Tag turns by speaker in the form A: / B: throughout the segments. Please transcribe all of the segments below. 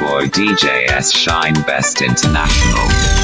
A: boy DJS Shine Best International.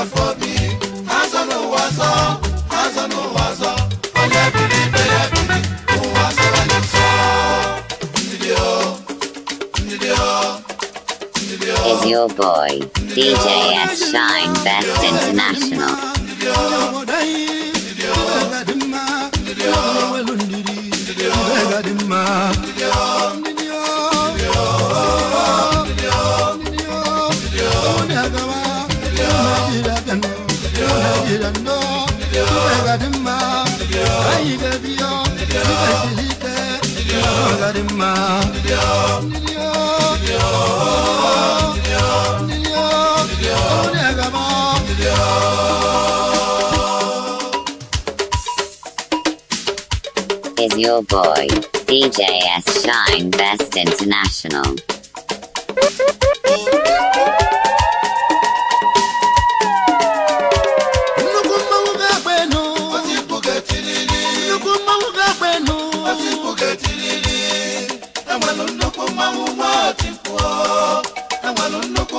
A: Is your boy, DJ S. Shine Best
B: International.
A: Angel Boy, DJS Shine Best International.
B: Enwere nnukwu mmanwụ nwa ọtị mkpụọ, nnukwu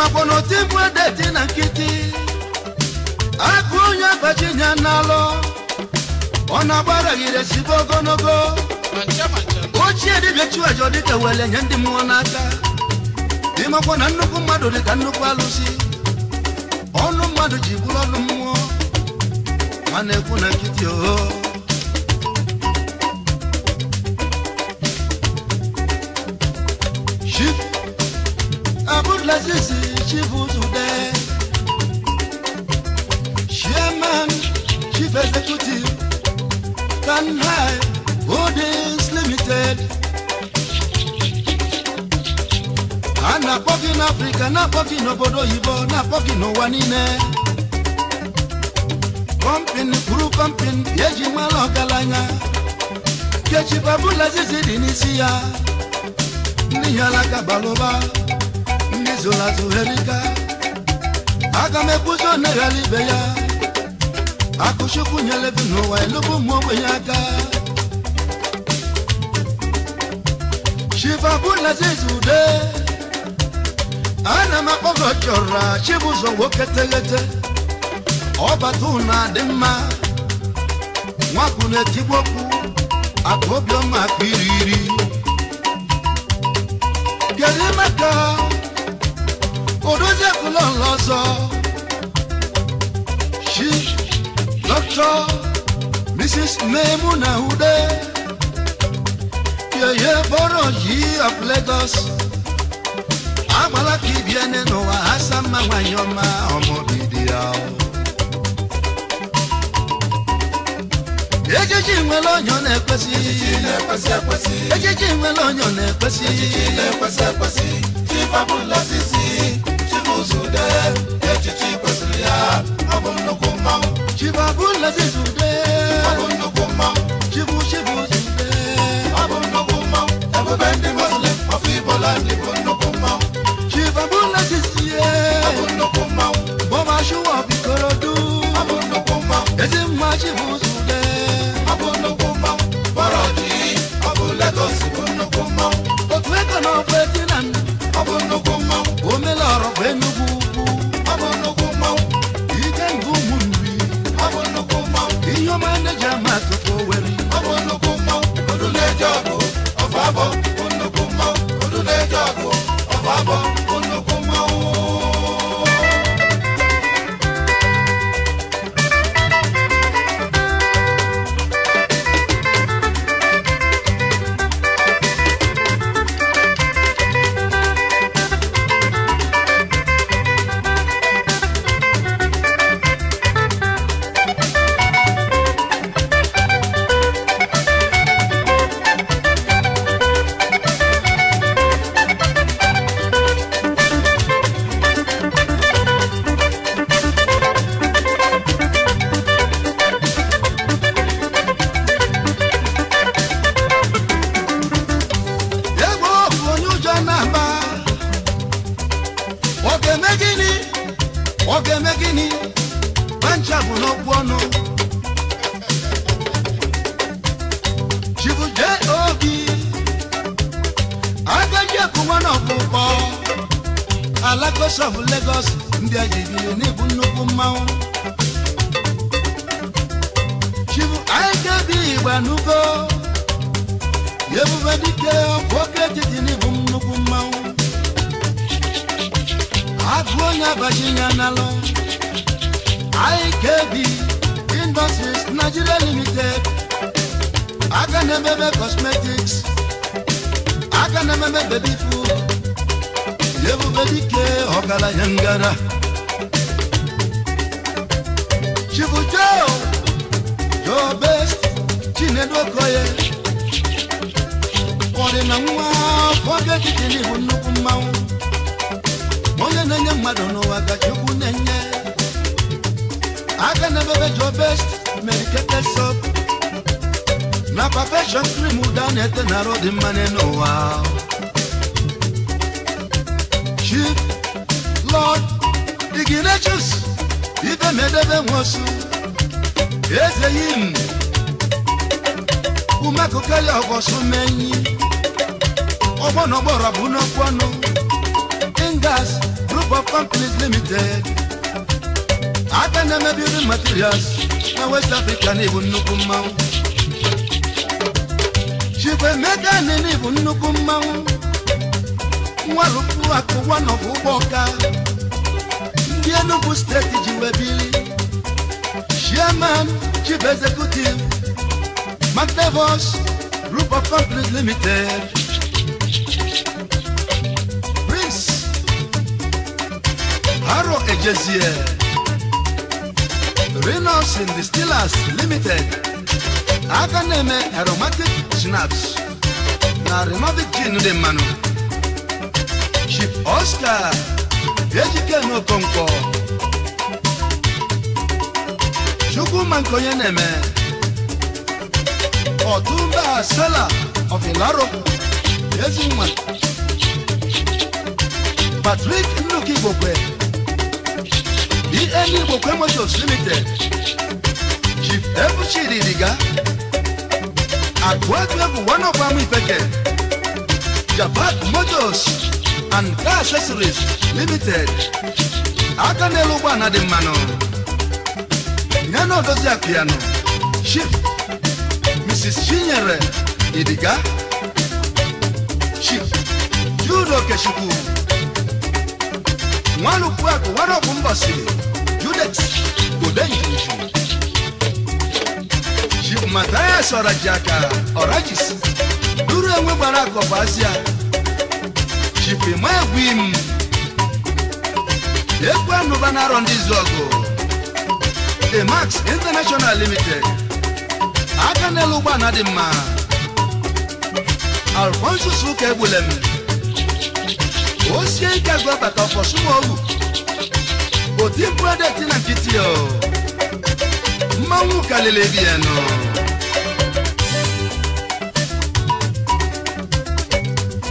C: makwa na oti mbụ edeti na nkịtị akụ onye abachinya n'alụ ọ na gị sibe ogologo ochie dibịa chiwajọ dịka wele nye ndị mmụọ n'aka ịmakwa na nnukwu mmadụ dịka nnukwu alụsi ọnụ mmadụ ji bụrụ ọnụ mmụọ ma na-ekwu na nkịtị oho Abdulaziz achievable today. Chairman, Chief Executive, Tanhai Holdings Limited. Anapọ́kì n'Africa, n'apọ́kì n'obodo oyibo, n'apọ́kì n'ụwa niile. Kọmpin kwuru kọmpin eji nwere ọgaranya. Kechi Babulazizi dị n'isi ya. Ndị ya alaka balụba ezola zoherika aga m ekwuzi oneghara ibe ya akụchukwu nyere bi n'ụwa elubu ụmụ ogbenye aka ana m akpọgo woketegete, obatuna nwoke teghete ọbata ụna dị mma nwapụ Òdòjẹ́kù ló ń lọ sọ. She doctor, Mrs. Maimuna Ude. Yèyé bọ́rọ̀ yìí of Lagos. Àgbàlá kìbi ẹni nù wá, àṣà máa wáyé ọmọ ọmọ bìdì àwọn. ejiji nwe lọnyọ na-ekwesị ejiji nwe lọnyọ na-ekwesị ejiji na-ekwesị ekwesị chibabụ lọsịs zude echichi kwesịrị ya ọ bụ nnukwu mmanwụ chibabụ nlezi zude ọ nnukwu mmanwụ chibu chibu zude ọ nnukwu mmanwụ ebube ndị muslim ọfụ ibola ndị bụ nnukwu mmanwụ chibabụ nlezi sie ọ nnukwu mmanwụ bọba shuwa bikorodu ọ bụ nnukwu mmanwụ ezi mma chibu Nwalupu akụ Judet Godenjuju Chief Matthias Orajaka Orajis duru enwe gbara akọpa Asia Chief Emegwim Ekwe Anụba na-arọ ndị izu ọgụ Emax International Limited aka n'elu ụgbọ na dị mma Alfonso Suka Egbulem ó ṣe é jágbọ́ bàtà ọ̀pọ̀ súnmọ́ òwú kò tí ń pọ́dẹ̀ tí náà ti ọ̀ máa ń wù kálẹ̀lẹ̀ bí ẹ̀nà.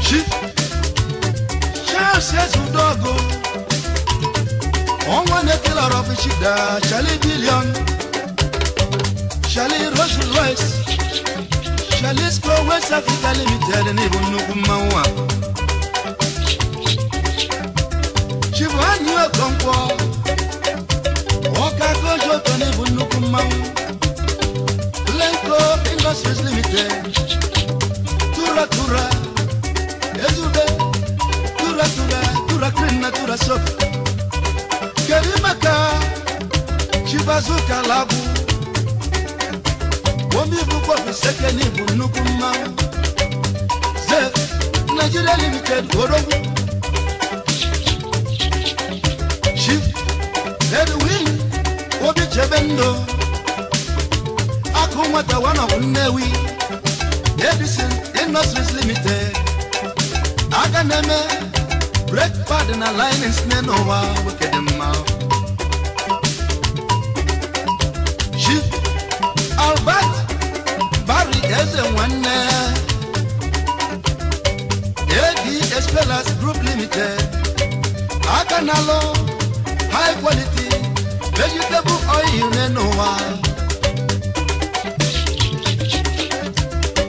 C: ṣí ṣáàṣì ẹ̀sùn dọ́gò wọ́n wọ́n ní kí lọ́rọ̀ fi ṣì dá ṣálí bílíọ̀nù ṣálí rọ́ṣù lọ́ìsì ṣálí square west africa limited ní ìbùnú kúmáwá. Chibwanyi Okonkwo Ọka Kojo Tony bụ nnukwu mmanwụ Lenko Industries Tura Tura Ezube Tura Tura Tura Tura Soap Kedu maka Chibazuka Labu Omi bụkwa Bisekeni bụ nnukwu mmanwụ Nigeria Limited Orogwu Edwin Obi Chebendo Akumata one of Newi Edison Industries Limited Aganeme Break Partner Line in Snenowa Wikedema Chief Albert Barry Ezewanne AD Espelas Group Limited Aganalo High Quality vegetable oil nínú wa.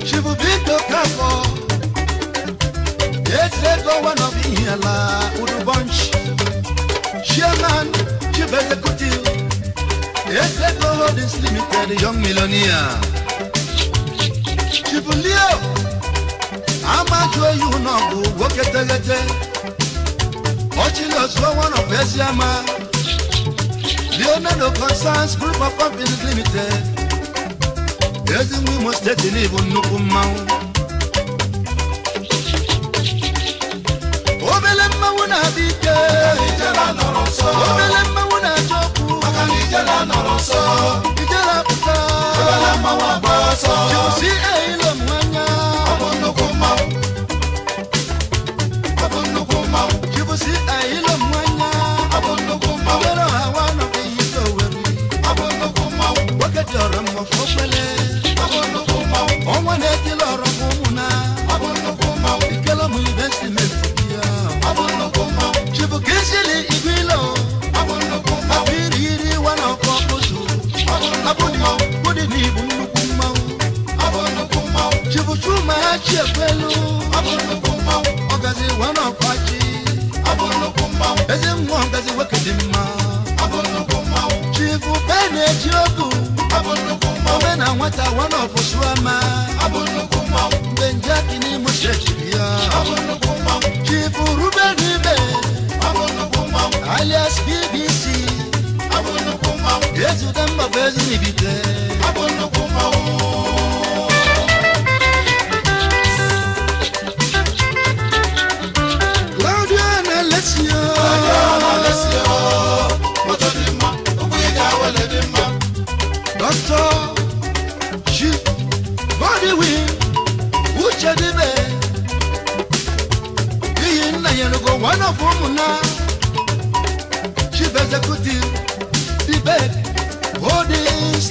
C: shivubito kakọ ezeto one of ihala udubonch chairman chief executive ezeto holdings limited young millionaire. shivulio amaju eyu náà bu wo ketegete ọchilọsọ one of The owner no concerns group of companies limited. Everything we must take in even no amount. Obele mma wo na abike. Ijela
B: nọrọ nsọ. Obele mma wo na ajọkwu. Maka na ijela nọrọ nsọ. Ijela pụta. Obele mma wo agba ọsọ. Josi eyilo m anya.
C: Ọ bụ nnukwu mmanwụ.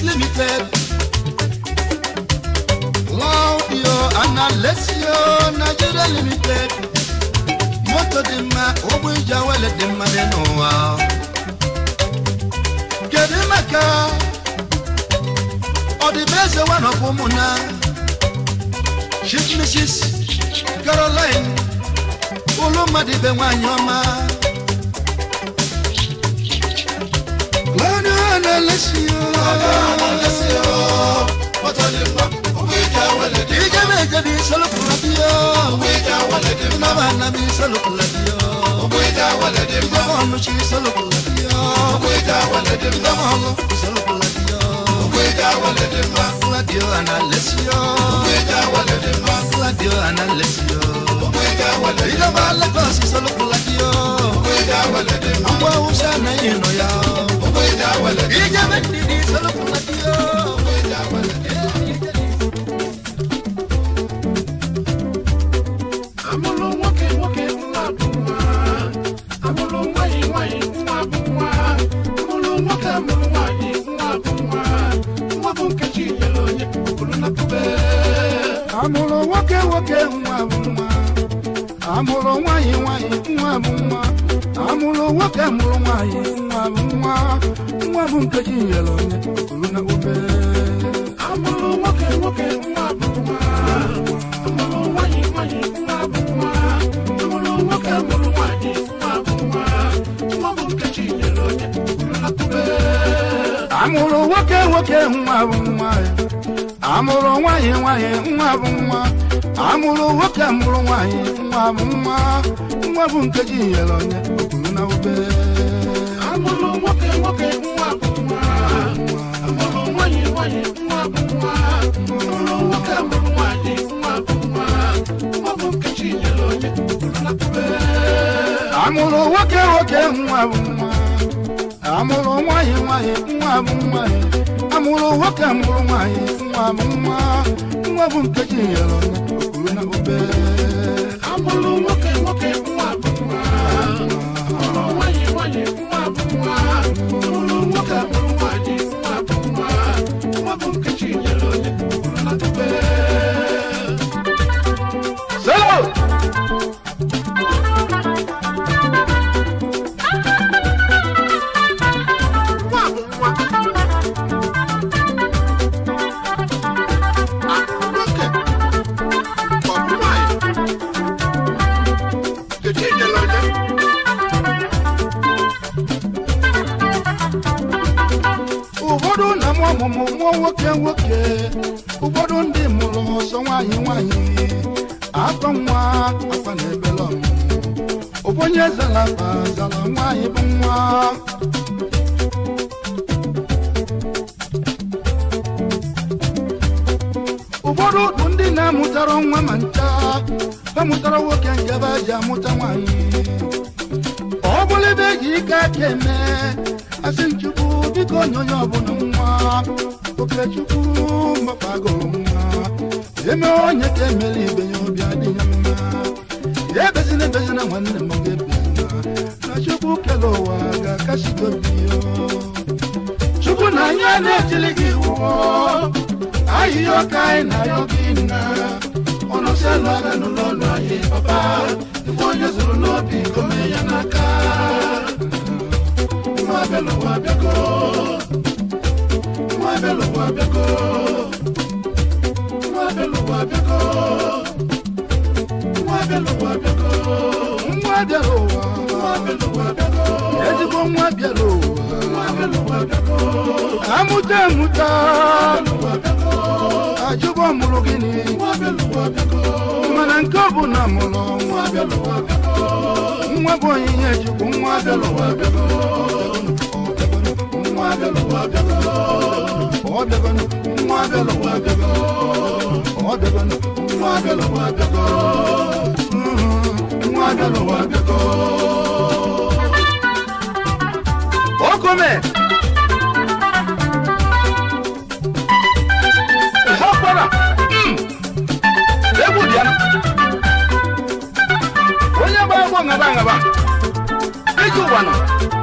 C: Holdings Limited. Claudio and Alessio Nigeria Limited. Moto di ma ogbe ìjàwele di ma nínú wa. Kedu maka ọdịbeze wa nọkwa ụmụ na Chief Mrs. Caroline Olumadịbe nwanyị ọma. على الشيوخ على الشيوخ بطل المك ويجا ولد يجا بيجا بيسلك لديا ويجا ولد ابن مهنا بيسلك لديا ويجا ولد ابن مهنا مش يسلك لديا ويجا ولد ابن مهنا بيسلك لديا ويجا ولد ابن مهنا لديا انا الشيوخ ويجا ولد ابن مهنا لديا انا الشيوخ ويجا ولد ابن مهنا بيسلك لديا ويجا ولد ابن مهنا بيسلك لديا ìjẹ́ bẹ́ẹ̀ dìde sọ́lọ́kùnrin àti yóò. nwoke mụrụ nwaanyị nwa bụ nwa nwa bụ nkeji nyere onye kwuru na obere
B: amụrụ nwoke nwoke nwa bụ nwa amụrụ nwaanyị nwaanyị nwa bụ nwa amụrụ nwoke mụrụ nwaanyị
C: nwa bụ nwa nwa
B: amụrụ nwoke nwoke nwa bụ nwa amụrụ nwanyị nwanyị nwa bụ nwa amụrụ nwoke mụrụ nwanyị nwa bụ nwa nwa bụ nkeji yọrọ okuru na obere amụrụ nwoke aina yokina mwabelo wabyako mwabelo wabyako
C: mwabelo wabyako mwabelo wabyako mwabelo mwabelo mwabelo mwabelo amuta muta mwabelo wabyako ajubo mulugini manankabu na na mulo nwabo yinye jubu
B: nwadelo
C: okome nga tú,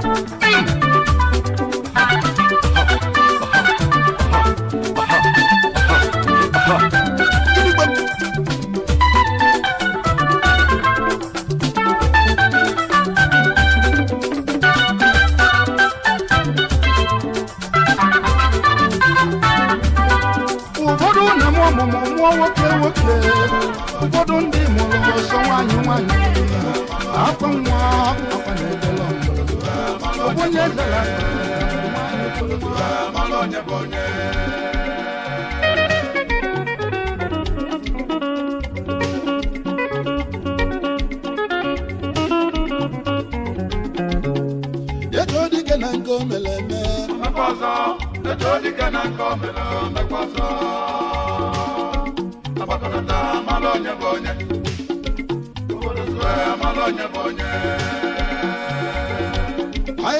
C: Bonye bonye, bonye.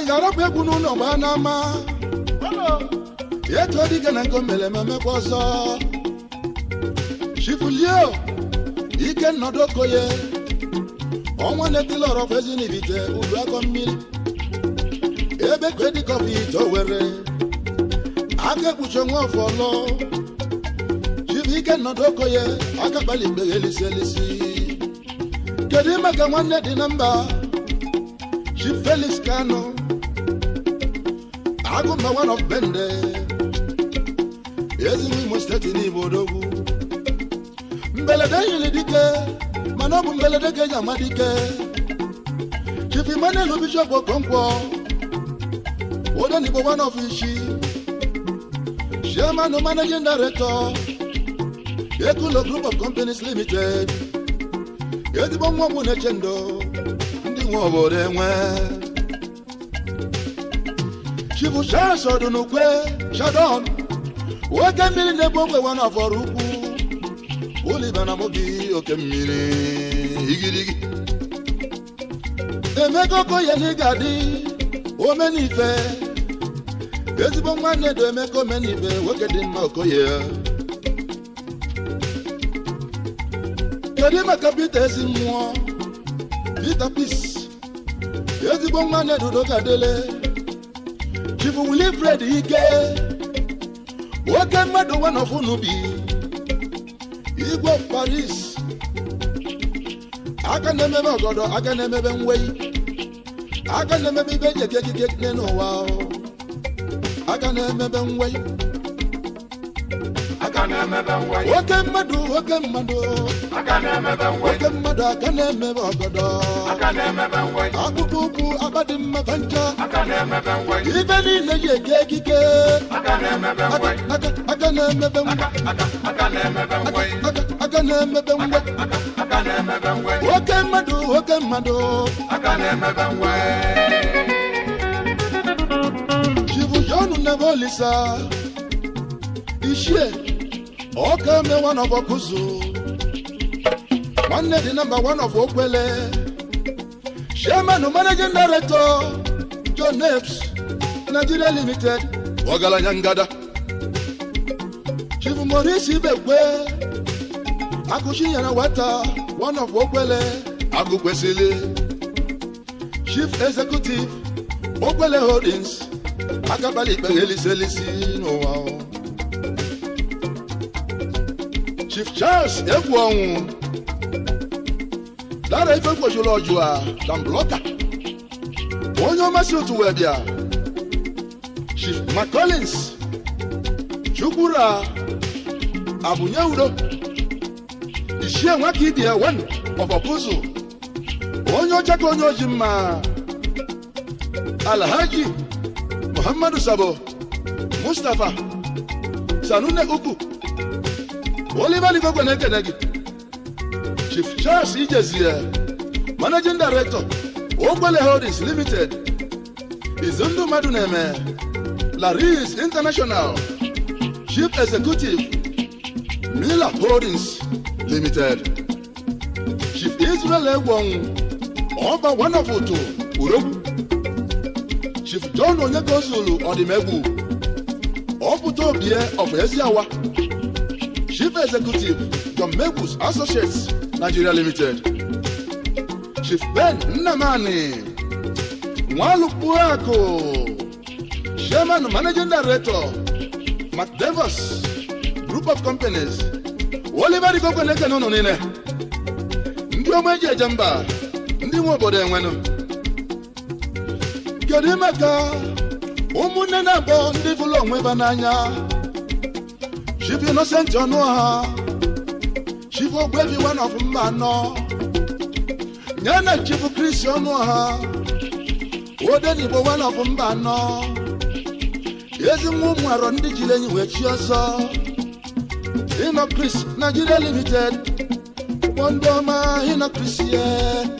C: ga-arapụ egwu n'ụlọ gbaa n'ama etu dịga na nke mere ememekwa ọzọ chifulio ike nnọdụ okoye ọnwa na-etila ọrọfụ ezi n'ibite ulu akọ mmiri ebe kedikọfụ ite were aka ekpuchi onwe ọfụ ọlọ chibụike nnọdụ okoye aka kpali mgbe ya elisi elisi kedu ime ka nwanne dị na mba Chief Felix Kano agụmba bende ezigbo imo steeti n'Igbo odogwu mbelede yiri dike mana ọ bụ mbelede ga-eji ama dike chief Emmanuel Bishop Okonkwo Odenigbo one of Ishi chairman and managing director Ekulo group of companies limited ezigbo nwa ọgwụ na-eche ndo ndị nwe obodo enwe chukwu sọdụ n'ukwe shadon oke mmiri na-ebu ogbe nwa n'afọrọ ukwu ụlịba na mobi oke
B: mmiri igirigi
C: emeka okoye na ga-adị omenife ezigbo nwanne dị emeka omenife nwoke dị mma okoye kedu maka Pita ezi mmụọ Pita Peace ezigbo nwanne dị udo ife dị ike nwoke mmadụ nwanọfụ n'ubi igwe paris aka na-emebe ọgọdọ aka na-emebe nwei aka na-emebe ibe eji eke ekike n'ụwa aka na-emebe nwei nwoke mmadụ nwoke mmadụ nwoke mmadụ aka na-emebe ọgọdọ akpụkpọ ụkwụ agbadị mmebe njọ Akane niile yi eke ekike aka na-emebe nwe nwoke mmadụ nwoke mmadụ chibu jonu na-ebe olisa ichie ọka mee one of Okuzu nwanne di namba one of Okwele chairman managing director John Nigeria Limited ọgaranya ngada Chief Maurice Ibekwe akụchi nyere weta one of Okwele agụ Chief Executive Okwele Holdings akabali ikpe eliselisi n'ụwa Chief Charles egwu ọnwụ lara ife kwojuru ọjụ a na mbloka onye ọmasị otu wee bịa Chief McCollins chukwura abụnye udo ichie nwaka idi ewen ọbọkụzụ onye ọcha ka onye oji mma alhaji muhammadu sabo mustapha sanune Uku. Oliver Gwenegedegi, Chief Charles Ijezie, Managing Director, Ogbele Holdings Limited, Izundu Maduneme, Laris International, Chief Executive, Miller Holdings Limited, Chief Israel Egwon, Ọba Wanafoto, Urobu, Chief John Onyekonzulu Odimegwu, Ọpụta Obie of Eziawa, Chief Executive John Mewus Associates Nigeria Limited Chief Ben Nnamani Nwalukpuaku Chairman Managing Director McDevos Group of Companies Oliver Igokweneke n'ụnụ niile ndị ọma eji eje mba ndị nwe obodo enwenụ kedu ka ụmụnne na abọ ndị bụrụ onwe ba n'anya She be innocent, you know her. She for baby one of man, no. Nyana she for Christian, no her. O then you one of oh, man, no. Yes, you move around the Chilean, with you saw. In a Chris, Nigeria Limited. One bomber in a Chris, yeah.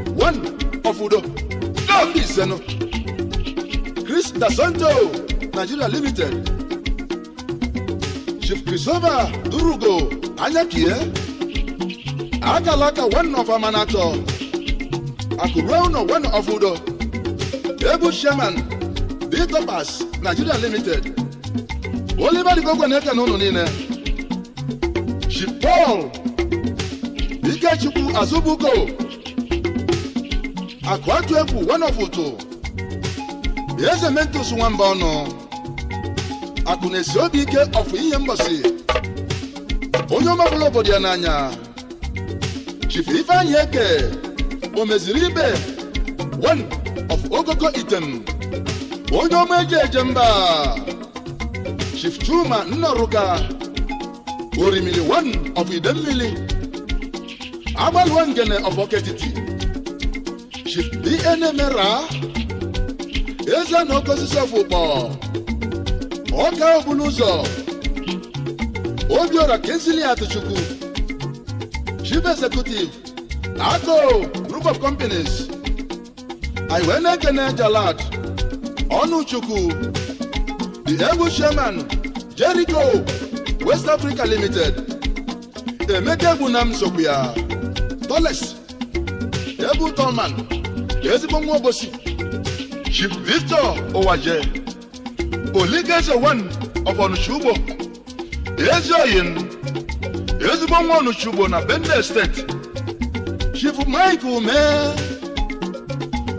C: ọfọdọ lọọlì ìsẹnu chris dasanto nigeria limited chief christopher durugo anyakie eh? Agalaka, one of amanato akureuno one of udo ebu sherman ditopas nigeria limited oliver dikogwe na-eke n'ụlọ chief paul ikechukwu azubuko akụ atụ egwu wanọfụtụ eze mentus nwamba ọnụ akụ na-esi obi ike ọfụ ihe mgbasi onye ọmabụla obodo ya n'anya chifu ifeanyị eke o meziri ibe one of ogoko item onye ọma eji eje mba chief chuma nnoruka Orimili one of idemmili agbalụọ ngene of oketiti should be enemera eze na oke osisi ọfụkpọ ọka obulu ụzọ obiora kensili atụchukwu chief executive ako group of companies iwe na-ekene jalad ọnụchukwu the egwu chairman jericho west africa limited emeka egbu na m sokwu ya toles ebu tolman ezigbo nwa obosi Chief Victor Owaje Oligeze one of Onitsha-Ugbo Ezioyin ezigbo nwa onitsha na Benue steeti Chief Mike Ume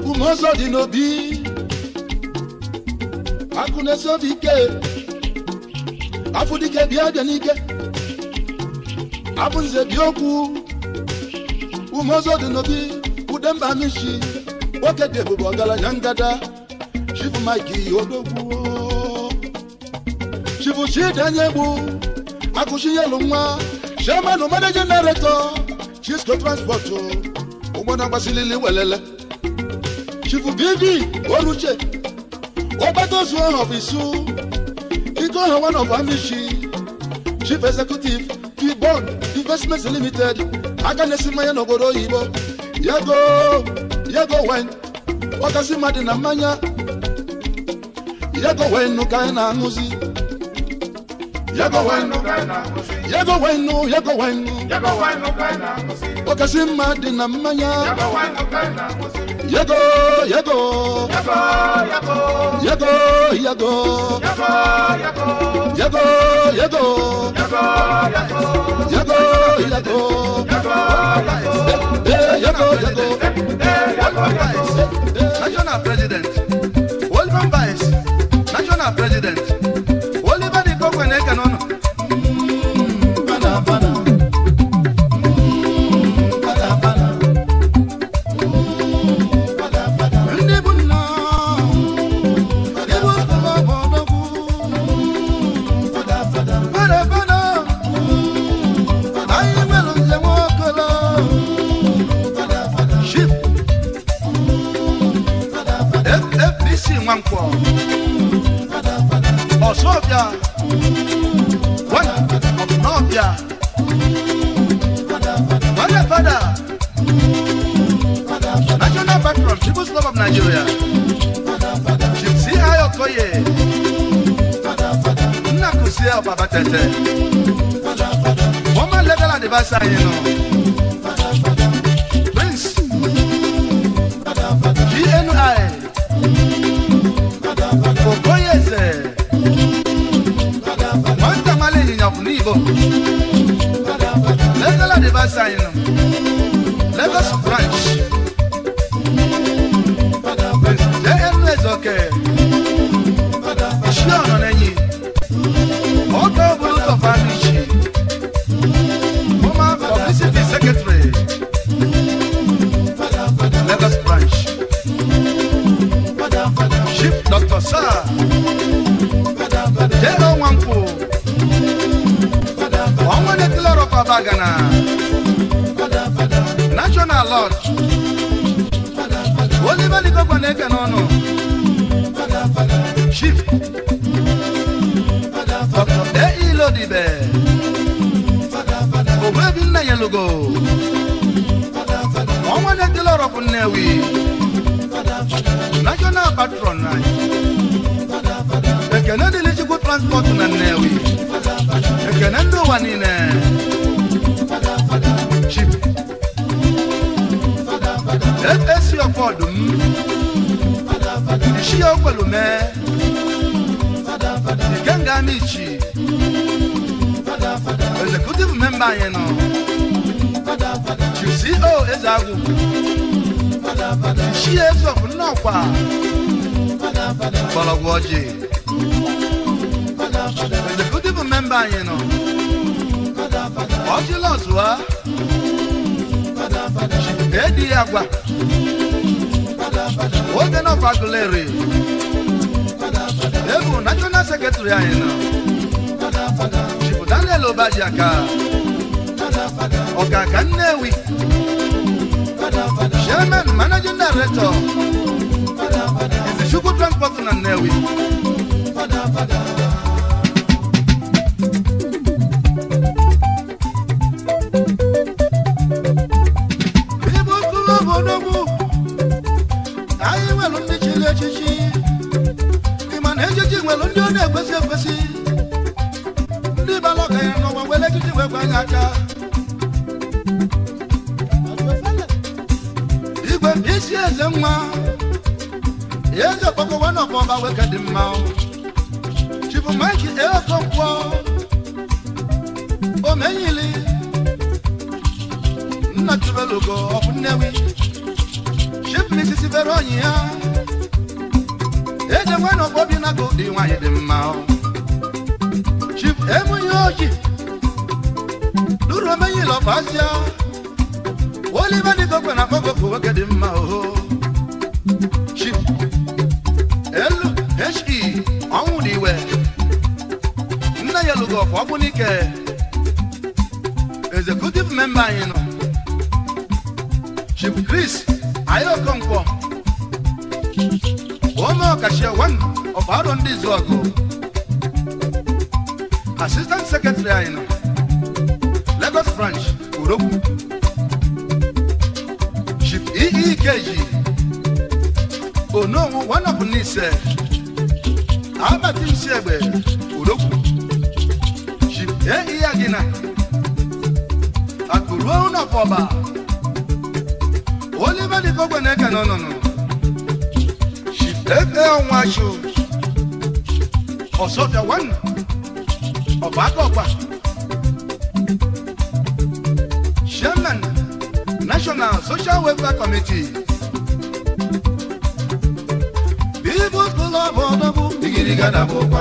C: Umeozo dị n'obi akụnaesiobi ike afụdike bịa bịa n'ike abụnze bi okwu Umeozo dị n'obi udemba mishi nwoke dị ebube ọgaranya ngada chifu mike odogwu chifu chidanyegbu akụchinyelu nwa chairman managing director chisco transport ụgbọna gbasilili welele chifu bidi oruche ọgbatozu ọhọbụ isu ike ọha one of amishi chief executive kibon investments limited aka na-esi mmanya n'obodo oyibo yago yego wen wakasi mmadụ na mmanya yego wenu ka anyị na-aṅụzi yego wenu yego wenu yego wenu wakasi mmadụ na mmanya yego yego
B: yego yego yego yego yego yego yego Yago Yago, welcome
C: national president, welcome vice, national president. Jay. Mm, father, father. And the beautiful member, you know. Mm, father, father. What you lost, wa? Mm, father, father. Agua. Mm, father, father. What kind of Aguilera? Mm, father, father. Ebu, National Secretary, you know. Father, father. Chibu Daniel Obajaka. Father, father. Oga Kanewi. Chairman, Managing Director. Chukwu transport na Nnewi fada fada ibu kụrụ obodo bụ anyị nwere ndị chiri echichi ịma na echichi nwere ndị ọ na-ekwesị ekwesị ndị bara ọgaranya n'ọgba were echichi wee gwa gị aka igwe isi eze nwa eze okpoko nwanne ọbọba weke dị mma chibu mike ekonkwọ omenyili nna tubelugo ọbụ nnewi chif misisi bere onyi ya eze nwanne ọbọbi na go dị anyị dị mma chif emunye oji duru nwoke dị mma Wagunike executive member anyị nọ Chief Chris Ayokonkwo onye ọkachie one of Aro ndị Izuọgụ assistant secretary anyị nọ Lagos branch Urogwu Chief EEKG Onowu one of Nise Albert Nsiegbe Urogwu ye iya gina akụruo ụnọpọba olibedikogwe na-eke n'ọnụnụ national social welfare committee bibụ kụlọbụ ọdọbụ digiriga dabụkwa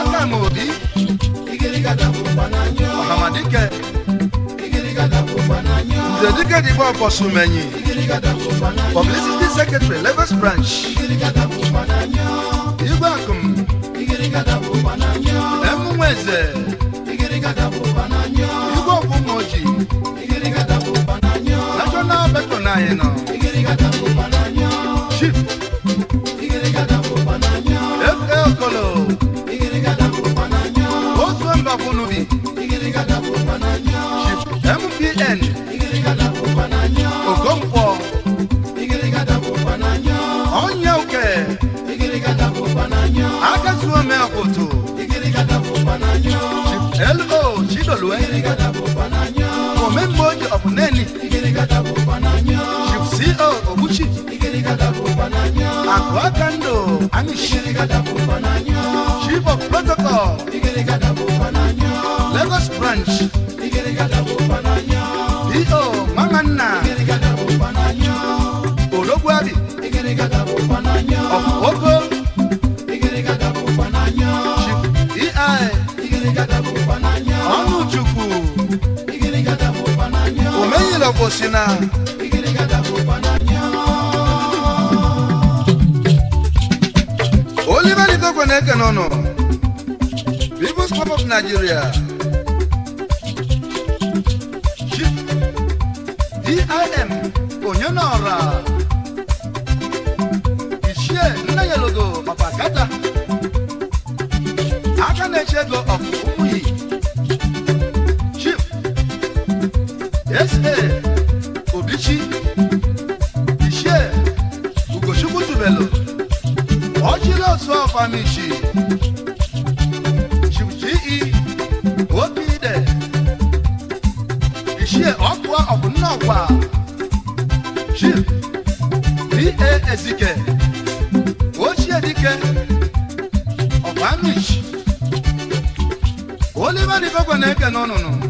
C: Adam Obi Ọ̀hàmàdíkẹ́ Nzedike Digbo Ọ̀fọ̀sùmẹ̀yìn Publicity Secretary Lagos Branch Igwe Akụm Emunweze Igwe Ọ̀fụmọ̀jì National Betonayị nọ. Poto. L.O. Chidolue. Comemboy of Neni. Chief C.O. E Obuchi. Akwakando Anish. Chief of Protocol. Lagos Branch. si na Oliver Ikekwe na-ekene ọnụ People's Club of Nigeria DIM onye n'ọra Maxwell Famichi, Shuji Obide, ishe Okwa Obunawa, Jil, B.A. Ezike, Ochie Dike, Obamish, Oliver Nibogwaneke, no, no, no.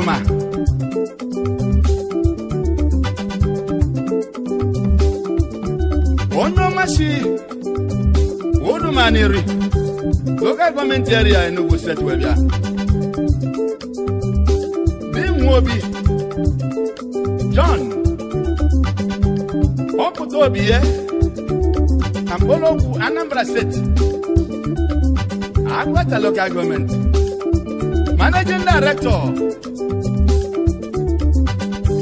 C: Jurumá. onye ọmachi odumaniri local gọọmenti area Enugu steeti wee bịa dinwe obi John ọpụta obi ya na Anambra state Agwata local gọọmenti managing director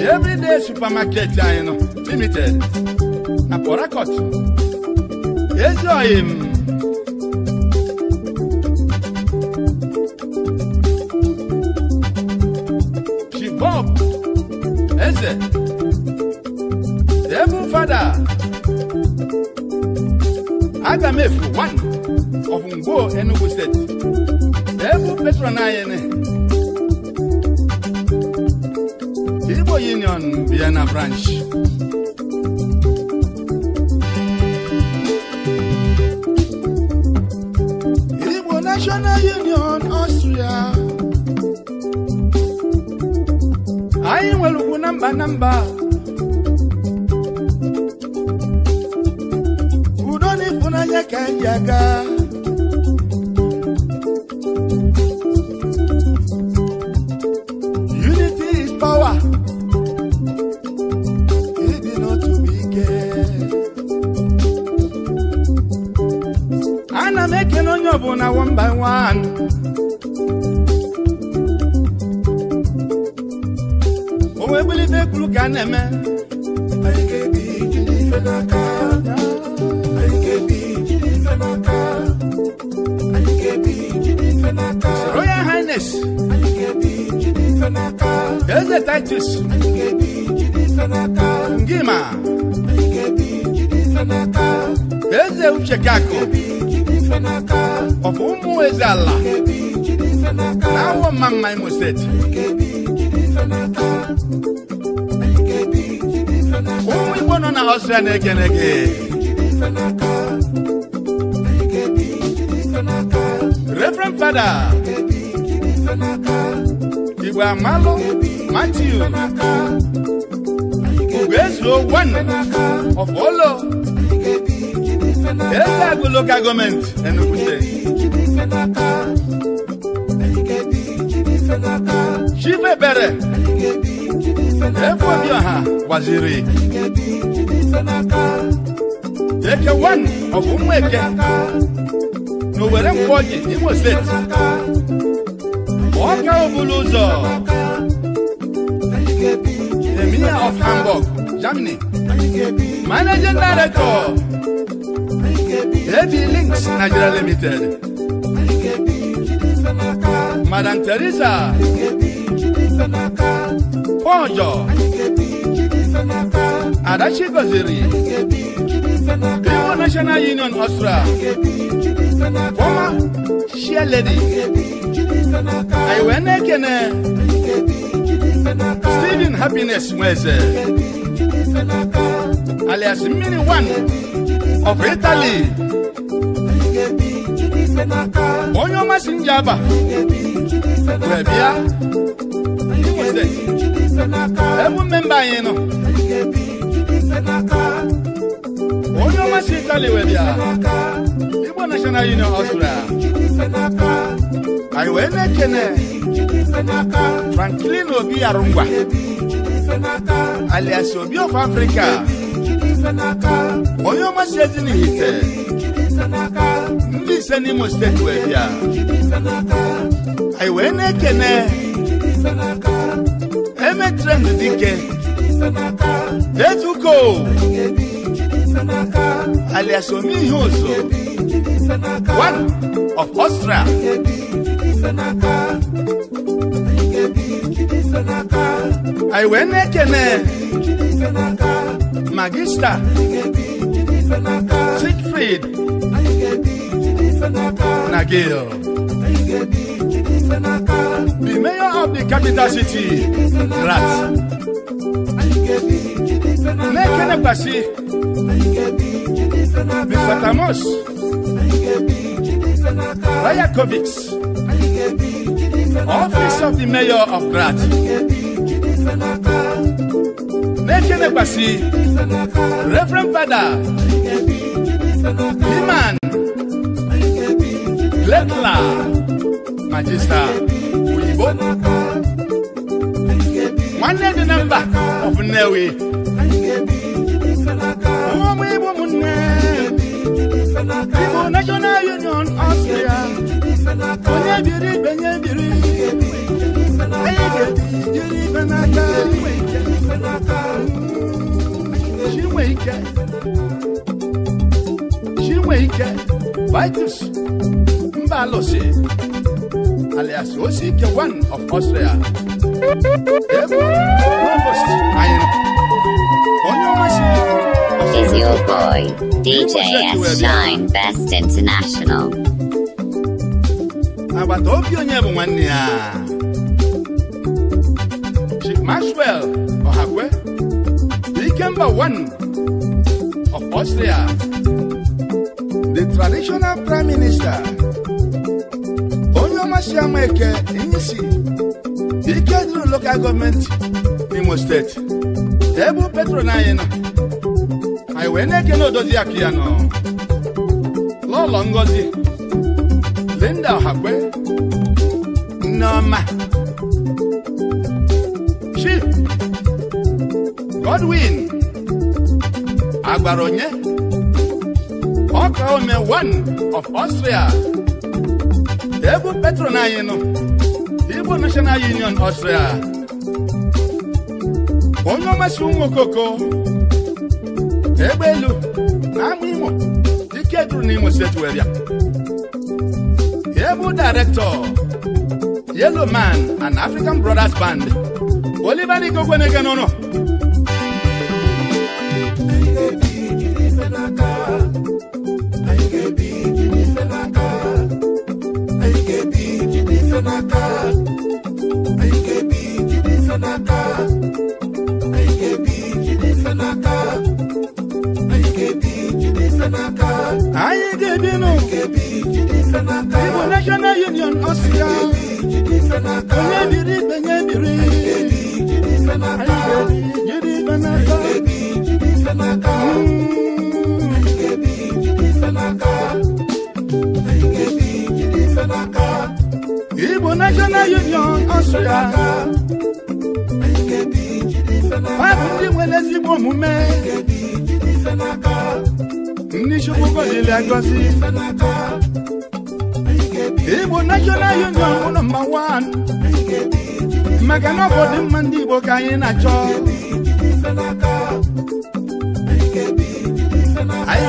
C: everyday supermarket anyị nọ limited na Port Harcourt ezi oyim ọfọlọ ele agụ lokal gọọmenti Enugu steeti chibebere efuobioha gbaziri eke one ọ bụ eke na Owerri Nkwoji Imo ọ ọka obulu ụzọ Mayor of Hamburg Germany Managing Director, AB Links Nigeria Limited, Madam Teresa, Ponjo, Adachi Goziri,
B: Biwo National Union Austria,
C: former chair lady, Iwene Kene, Stephen Happiness Mweze. alias mmiri one of Italy onye ọma si nje aba wee bịa ewu mba anyị nọ onye ọma si Italy wee bịa Igbo National Union Ọsụra anyị wee na-ekene Franklin Obi Arụngwa alias Obi of Africa onye si ọmasị ite ndị ise n'imo steeti e wee bịa anyị wee na-ekene emetren dike etuko alias ome ihe ụzọ
B: one of Austria anyị wee na
C: magista Siegfried na the mayor of the capital city Graz
B: na-ekenekwasị
C: the Fatamos Office of the Mayor of Grad. Nation Embassy, Reverend Father, Liman, Letla, Magister, Uyibo. One day the number of Newe. National Union Austria. onye biri ibe nye biri anyi alias one of Austria
A: Is your boy, DJ S Shine Best International.
C: agbata obi onye bụ nwanne ya Chief Maxwell Ọhakwe Ikemba Wanu of Austria the traditional prime minister onye ọma si ama eke Inyisi ike dịrị local gọọmenti Imo steeti ebe petro na anyị nọ anyị wee na-ekene odozi ya nọ ngozi Linda Ọhakwe Chioma Chip Godwin Agbaronye Okome one of Austria ebe patron anyị nọ National Union Austria onye ọmasị ụmụ okoko egbe elu na ama imo dike duru n'imo steeti were ya ebu Yellow Man and African Brothers Band. Olivani Gogwenegenono. ome
B: ndị Chukwuka dịrị Igbo National Union bụ
C: nọmba wan maka na ọbọdụ mma ndị Igbo ka anyị na-achọ anyị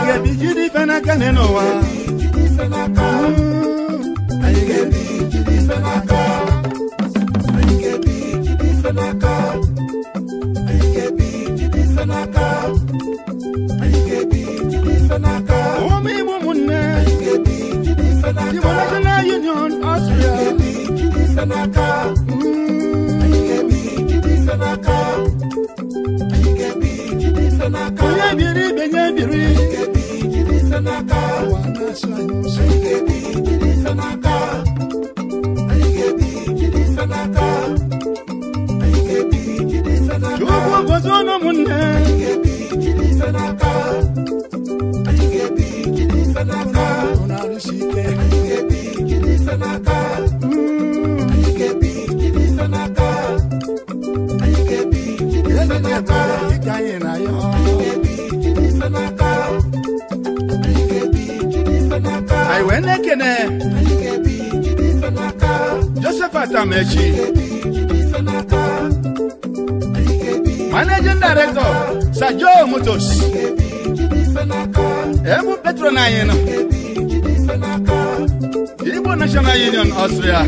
C: ga Jidi ife n'aka na n'ụwa
B: anyị ga-ebijiri ife n'aka ka n'aka
C: anyị ga-ebi jide ife n'aka ụmụ Union Austria biri biri
B: dịka anyị
C: na na joseph atamechi managing director sir joe Mutos. ebu petron anyị nọ igbo national union Austria.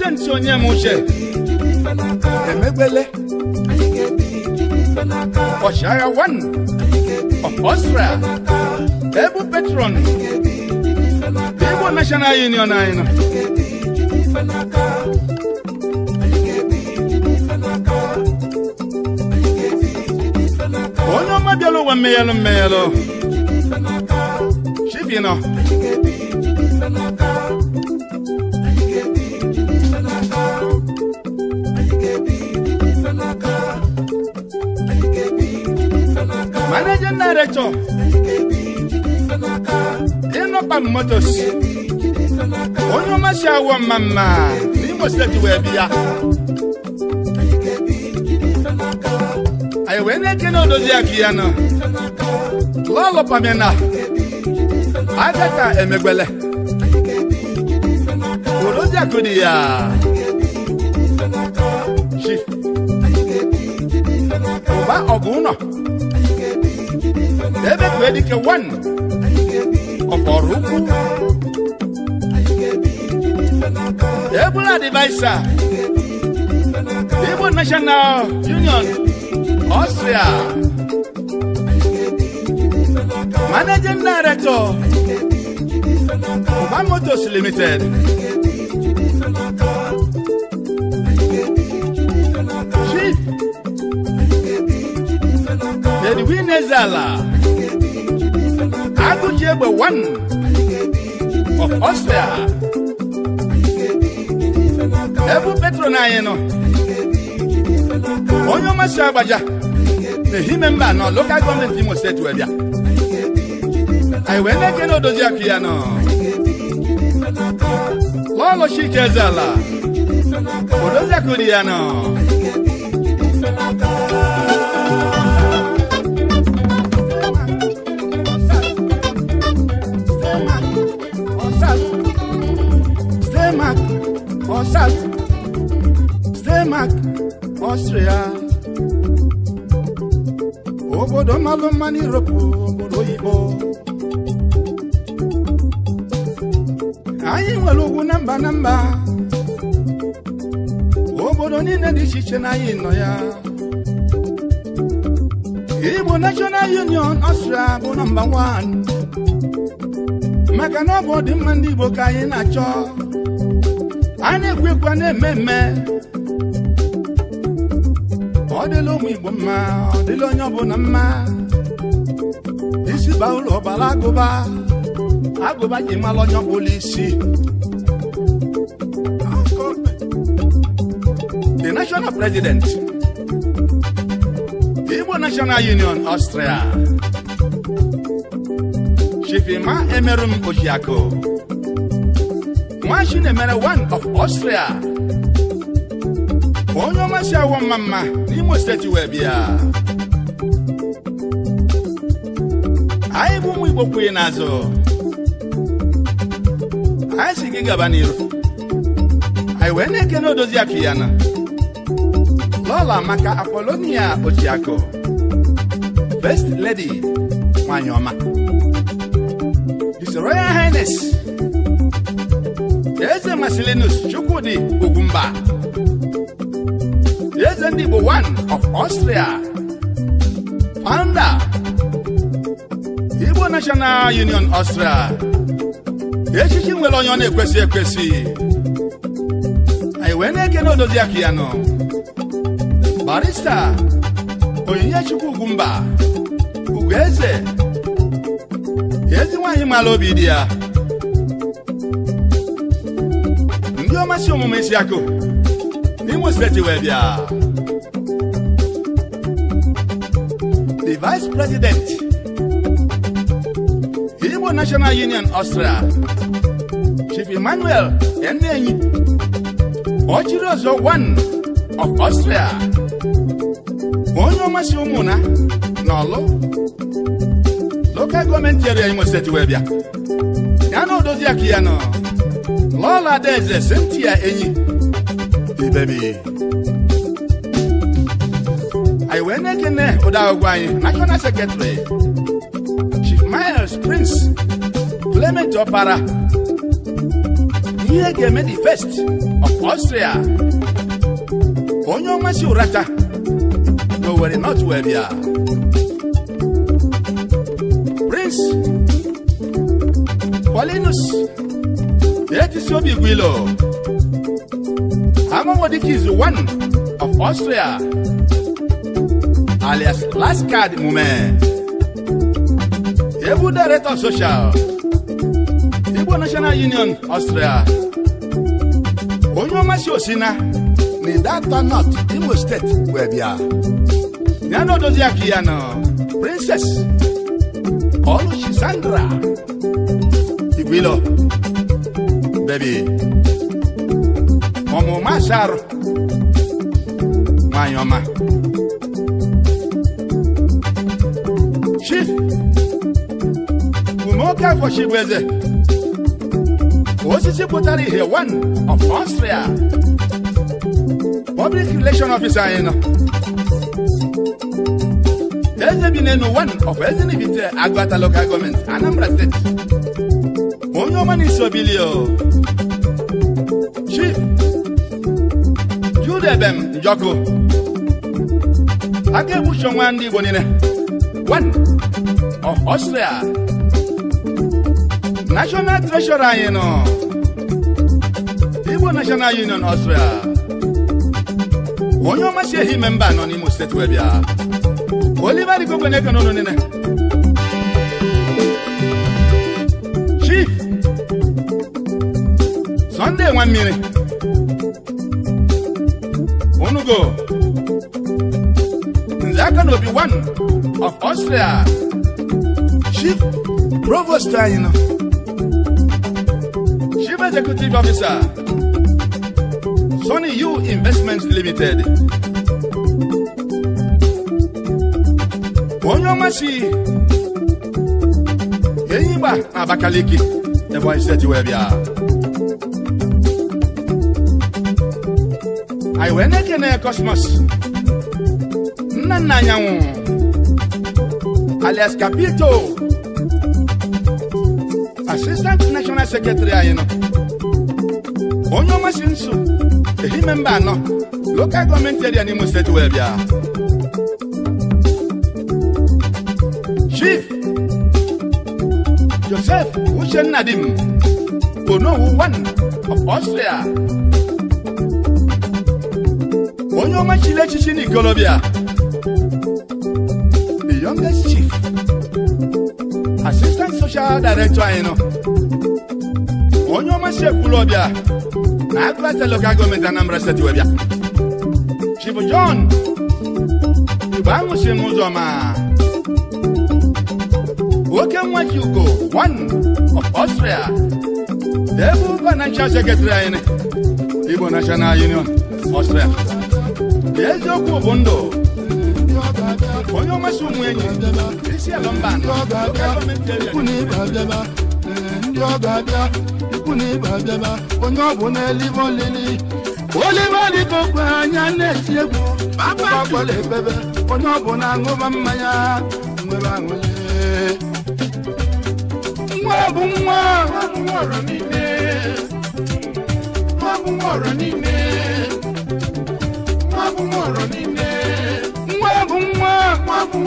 C: onye ntị onye m uche emegbele ọchịagha wan of Australia ebu petron Igbo National Union anyị nọ onye ọma bịara ụwa mmeghelụ mmeghelụ chibi moto ịnọkpa motos onye si awọ mma mma n'Imo steeti wee bịa anyị wee na-ekene odozi ya nọ lọlọpamena agata emegwele odozi akụ dị ya wee dị ka one ọkpọrọ ukwu ebula adivisa igbo national union austria managing director Oba Motors Limited Chief Edwin Ezala Achebe one of Austria. Ebu Petro na anyị nọ. Onye ọmasị agbaja na ehi memba nọ lokal gọọmenti Imo steeti wee bịa.
B: Anyị wee na-eke na odozi Long as she Lọlọ Allah.
C: Ezeala, odozi akụ dị obodo mmalụ mma n'iroopu obodo oyibo anyị nwere ugwu na mba na mba obodo niile dị iche iche na anyị nọ ya Igbo National Union Austria bụ nọmba 1 maka na ọ bụ ọdịmma ndị Igbo ka anyị na-achọ a na-ekwu ekwu na eme mme ọdịla ụmụ Igbo mma ọ dịla onye ọbụla mma isi ba ụlọ ọbara agụba agụba ji mara onye ọbụla isi the national president Igbo National Union Austria Chifima Emerum Ojiako nwa emere one of Austria ka onye ọma si awọ mma mma n'Imo steeti wee bịa anyị bụ ụmụ Igbo kwughị n'azụ anyị si gị gaba n'iru anyị wee na na odozi akụ ya na Lọla maka Apolonia Ochiako Best Lady nwanyị ọma His Royal Highness Eze Masilinus Chukwudi Ugwumba Eze ndị one of Austria founder Igbo National Union Austria echichi nwere onye ọ na-ekwesị ekwesị anyị wee na-eke na odozi aka ya nọ barista Onyinyechi Ugwumba Ugwueze ezi nwaanyị mara obi dị ya ndị ọmasị omume isi akụ Ogun State wee bịa the vice president Igbo National Union austria Chief Emmanuel Enenyi ọchịrị ọzọ one of austria onye ọmasị ụmụna na ọlụ local gọọmenti area Imo State wee bịa ya na odozi aka ya nọ Lọla Adaeze Cynthia Enyi obi baby. I went back in there without going. National Secretary, Chief Myers, Prince, Clement Opara. Here came the first of Austria. Onyo Masiurata. No worry, not where we are. Prince, Paulinus, that is your big willow. Nobody is one of Austria, alias last card moment. Able Director of Social, Igbo National Union Austria. Onye ọmasị osina na ịdata not Imo steeti wee bịa. Ya na odozi Princess Oluchi Sandra Igwilo Baby ọmụma sharụ nwanyị ọma chief umeoke afọchi bụ eze osisi potari ihe one of Austria public relation officer eno. nọ eze bi n'enu one of Ezenibite Agụata local government Anambra steeti onye ọma na isobili debe m njọkụ a egbuchi onwe ndị Igbo niile Ọstria National Treasury anyị nọ Igbo National Union Ọstria onye ọmasị ehi ime mba nọ n'Imo steeti wee bịa Oliver Igwe na-eke n'ụlọ niile Chief Sunday nwa mmiri Togo. Nzaka be one of Austria. Chief Provost Taino. Chief Executive Officer. Sony U Investments Limited. Onyomasi. Yeyiba Abakaliki. The voice that you have here. I went na-ekene Cosmos nna nna alias Capito Assistant National Secretary anyị nọ onye ọma si nso ehime mba anọ local gọọmenti eria n'Imo steeti wee bịa Chief Joseph Uchenna Dim Onowu one of Austria onye ọma chiri echichi n'ikolobịa the youngest chief assistant social director anyị nọ onye ọma si ekwulọbịa na agụlata local gọọmenti Anambra steeti webịa chief John igbe ahụ si m ụzọ ma nwoke one of Austria the ebe financial secretary anyị Igbo National Union Austria eziokwu bụ ndụ onye ụmụ enyi isi ndị ọ abịa ikwu na ịba abịaba onye ọ bụ n'elive olili anya na-eti egwu agbala ebebe onye ọ bụ na-aṅụba mmanya nwere aṅụle nwa
B: bụ nwa nwa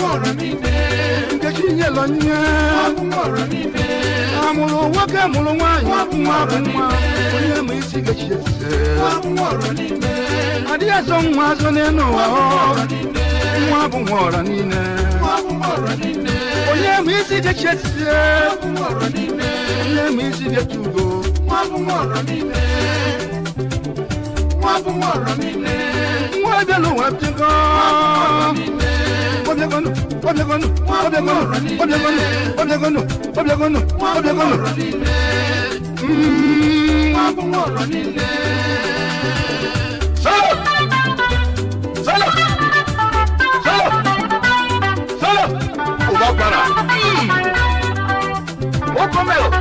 C: ọ̀rọ̀ mi bẹ́ẹ̀. Nkechi nye lọ nye. Wabun ọ̀rọ̀ mi bẹ́ẹ̀. Amụrụ nwoke mụrụ nwaanyị. Wabun ọ̀rọ̀ mi bẹ́ẹ̀. Onye ma isi Nkechi ese. Wabun ọ̀rọ̀ mi bẹ́ẹ̀. Adịghị azọ nwa azọ n'elu ụwa. Wabun ọ̀rọ̀ mi bẹ́ẹ̀. Nwa bụ nwa ọ̀rọ̀ niile. Wabun ọ̀rọ̀ mi bẹ́ẹ̀. Onye ma isi Nkechi ese oblegonu oblegonu oblegonu oblegonu oblegonu oblegonu oblegonu. wọ́n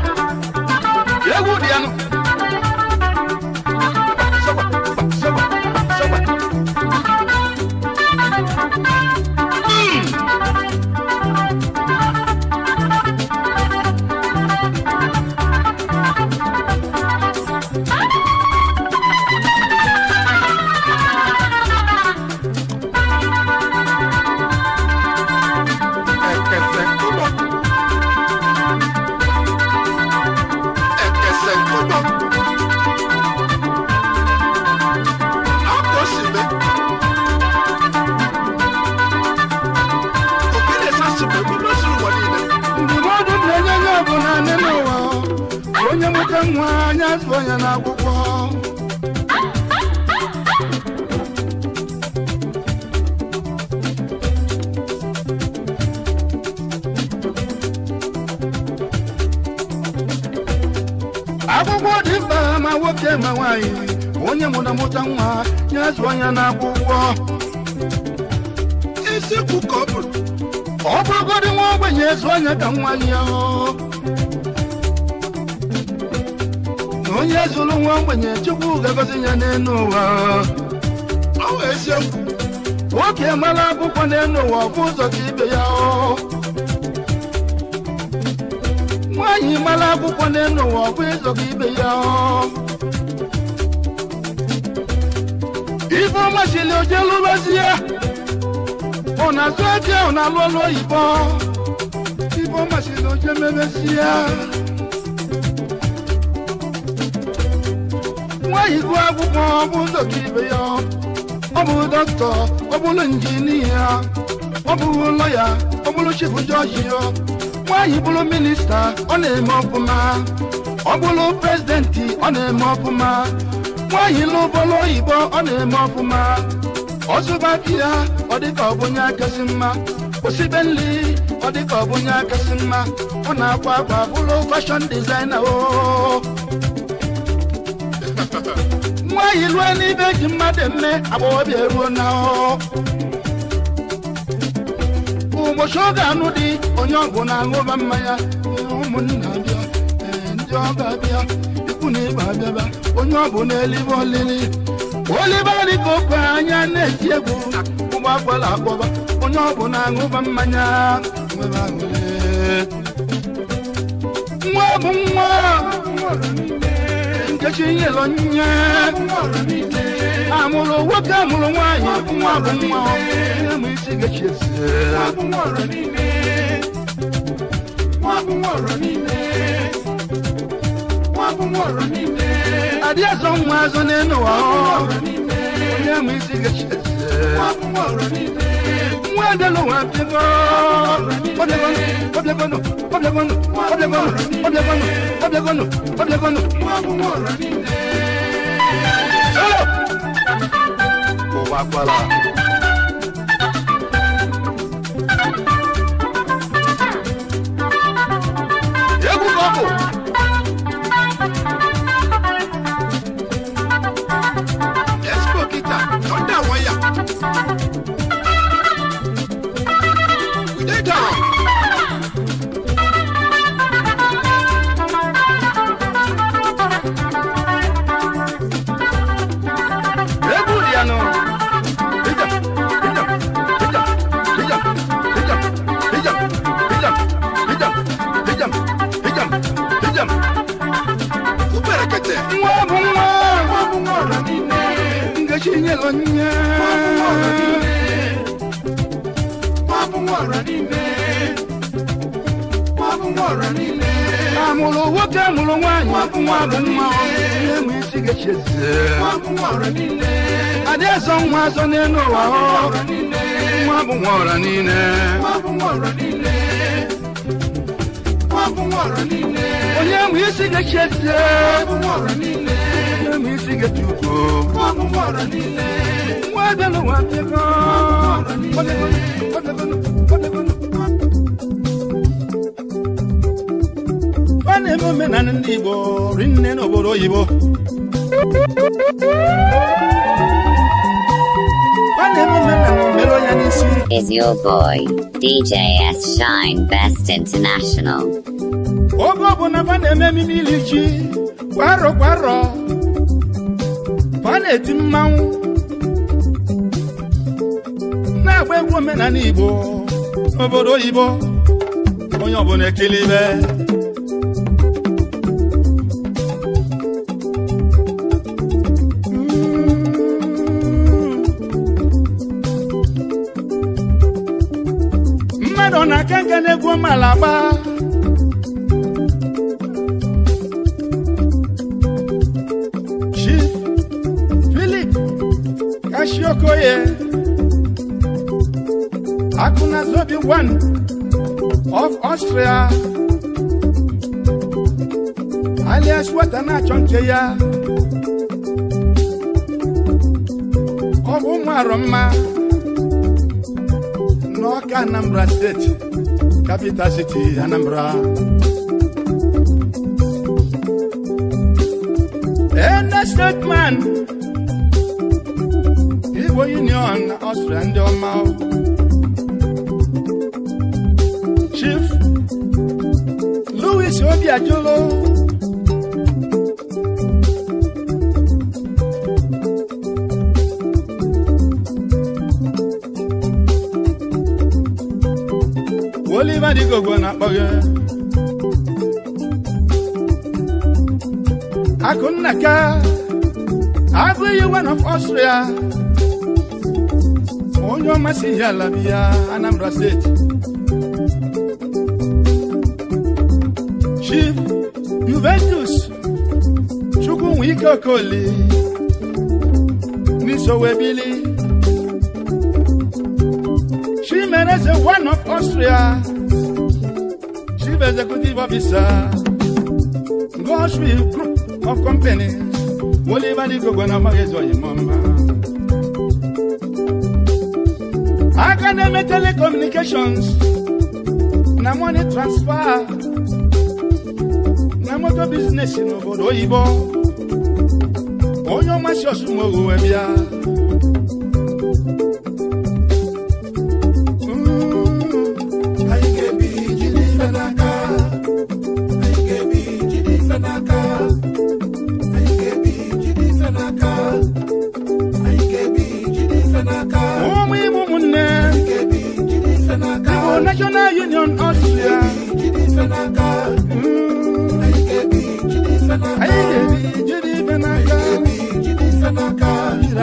C: onye na-akwụkwọ isi ka ọ bụrụ ọ bụrụgodị nwa ogbenye ezu anya ka nwa ya na onye zụrụ nwa ogbenye chukwu ga-agọzi ya n'elu ụwa ọ nwoke mara akwụkwọ n'elu ụwa ọbụ ụzọ ka ibe ya nwaanyị mara akwụkwọ n'elu ụwa ọbụ ụzọ ka ibe ya ifeọma jili oje lụbazie ụna azụ eje ụna alụọlụ oyibo ifeọma jili oje mebezie nwa igwe akwụkwọ bụ ụzọ ya ọ bụ dọkịta ọ bụrụ injinia ọ bụrụ lọya ọ bụrụ chifu jọji ya nwaanyị bụrụ minista ọ na-eme ọfụma ọ bụrụ prezidenti ọ na-eme ọbụma. nwa anyị n'ụbọlụ oyibo ọ na-eme ọfụma ọzụba di ọ dịka ọ bụ onye akasị mma osibe nri ọ dịka ọ bụ onye akasị mma ọ na-akwa akwa bụrụ fashion designer o nwa anyị lụọ n'ibe ji mmadụ eme agbọghọbịa eruo na o ụbọchị oge anụ dị onye ọgwụ na-aṅụba mmanya ụmụnna bịa ndị ọba bịa okwu na ịba abịaba onye ọ bụ n'eluigwe olibali ka oke anya na-eji egwu ụgbọ akwala akpọba onye ọ bụ na-aṅụba mmanya nwa bụ nwa nkechi nyelo nye amụrụ nwoke amụrụ nwaanyị nwa bụ nwa m isi gechiesi nwa bụ nwa ọrọ n'ime Adiẹ sọ ń wá sọ nínú wa ọ́. Onye mú isi gẹ̀ṣẹ̀ sí. Nwa dé ló wá fi bọ́. Ọ̀dẹ̀gbọ́nù, ọ̀dẹ̀gbọ́nù, ọ̀dẹ̀gbọ́nù, ọ̀dẹ̀gbọ́nù, ọ̀dẹ̀gbọ́nù, ọ̀dẹ̀gbọ́nù, ọ̀dẹ̀gbọ́nù.
B: Kò wá pàlà.
C: nwa mma ihe mụ isi
B: ga-echezie
C: adị eso nwa so n'elu ụwa nwa a na-eme omenaala ndị Igbo rinne n'obodo oyibo a
A: na-eme omenala mere onye n'isi is your boy dj's Shine Best International
C: oge ọbụla fa na-eme ememe iri kwaro kwaro, kwarọ na-eti mmanwụ na-agba egwu omenaala Igbo n'obodo oyibo onye ọbụla ekele ibe malaba Chief Philip Kashiokoye Akuna Zobi one of Austria na-achọ nke ya ọ bụ ụmụ arọ mma n'ọka Anambra steeti capital city Anambra. Ene statement Igbo Union ọsụrụ ndị ọma Chief Louis Obiajulu igogwe na-akpọ gị akụnnaka abụghị one of Austria onye ọmasị ihe ala bi ya Anambra steeti Chief Juventus ike Okoli n'isowe bili Chimereze one of Austria executive officer, Goshville Group of Companies, Oliver Di Gogona Magezoye Mama. Academic Telecommunications, na money transfer, na motor business in obodo oyibo, onye ọmasị ọsụ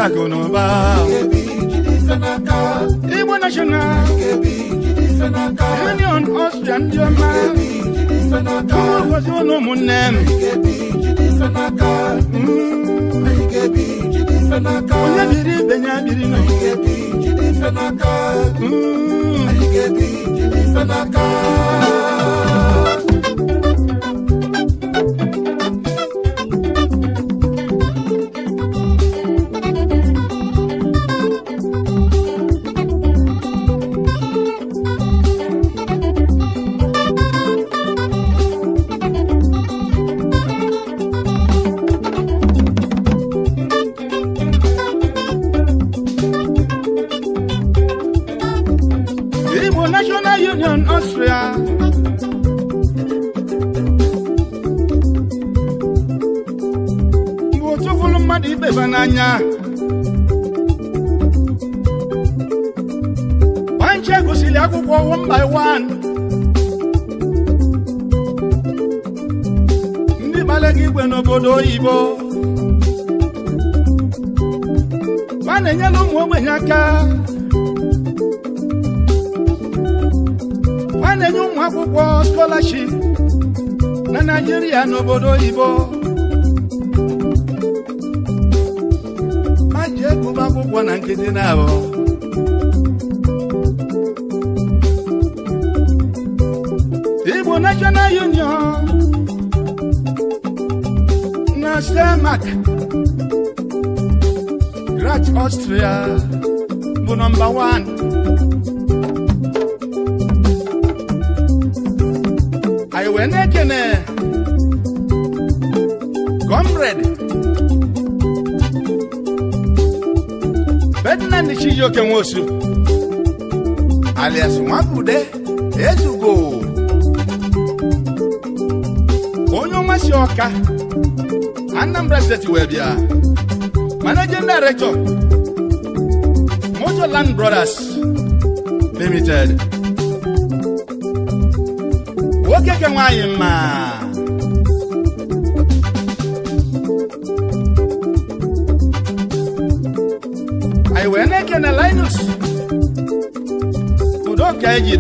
C: akụ na ụba igbo national union ọstrịa ndị ọma gozi ụlọ ụmụnne m
B: onye biri ibe ya biri nọ Mm.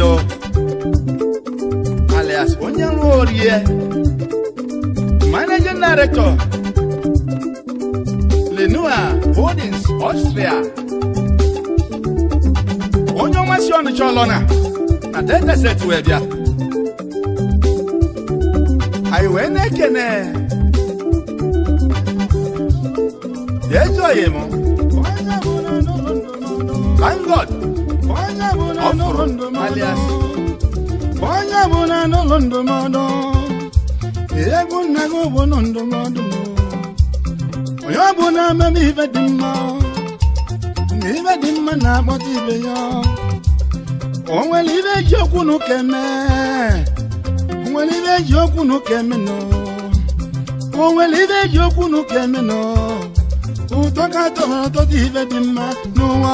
C: Bello alias onye nwe orie managing director Lenua Holdings Austria onye ọnwa si ọnụ chọlọ na na deteset wee bịa anyị wee na-ekene ejoghị m
B: onye
C: bụ na n'ụlọ ndụmọdụ egwu nna gị bụ ndụmọdụ onye ọ bụ na ibe dị mma na ibe dị ụtọ ka tọrọ dị mma n'ụwa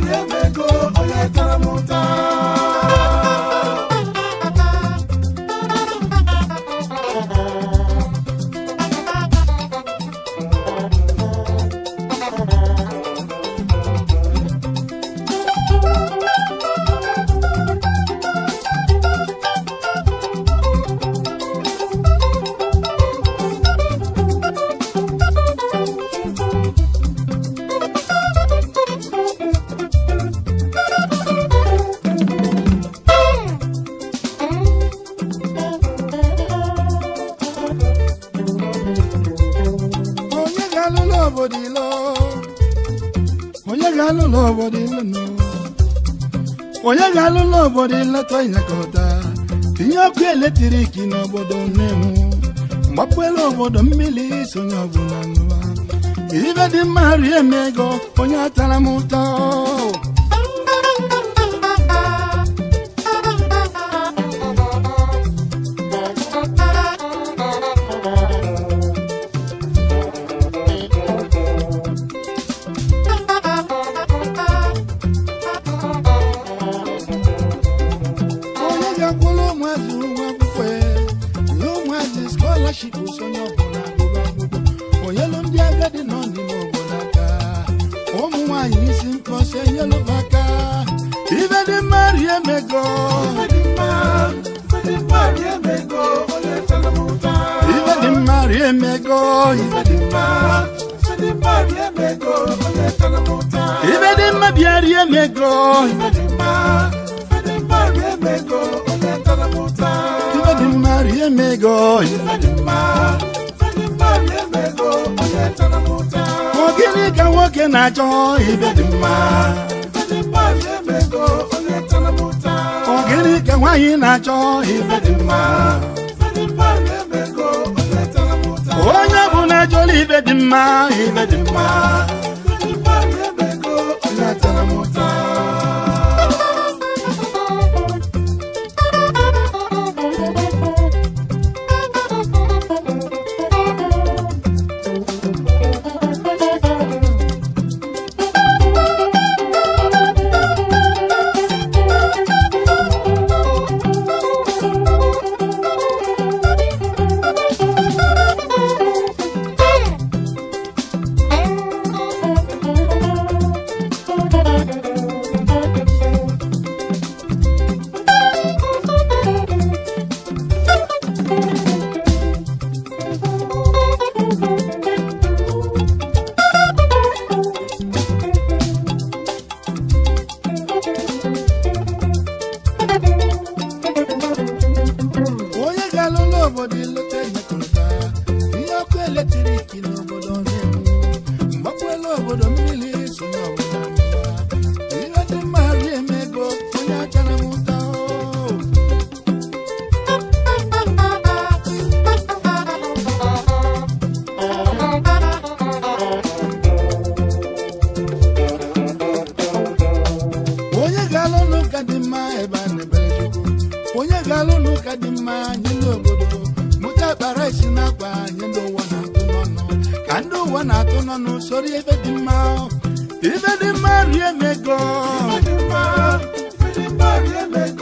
B: rie mego onye tara m ụta
C: obodo onye ga-alụ obodo ịlọta ịnyakọta tinye ọkụ eletrik n'obodo nnewu mgbapụela obodo mmiri sonye ọbụla nụwa ibe dị mma rie onye atara m ụtọ na-achọ ife dị mma onye bụ na ife dị mma ife dị mma ụka dị mma mụta akpara isi n'akwa anyị ndị ụwa na-atụ n'ọnụ ka ndị ụwa na-atụ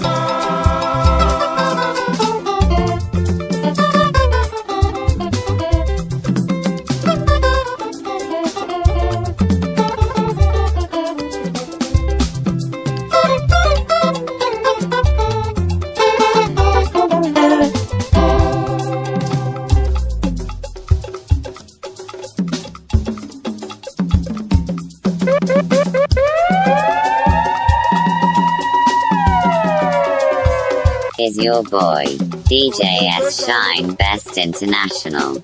A: your boy, DJ S. Shine Best International.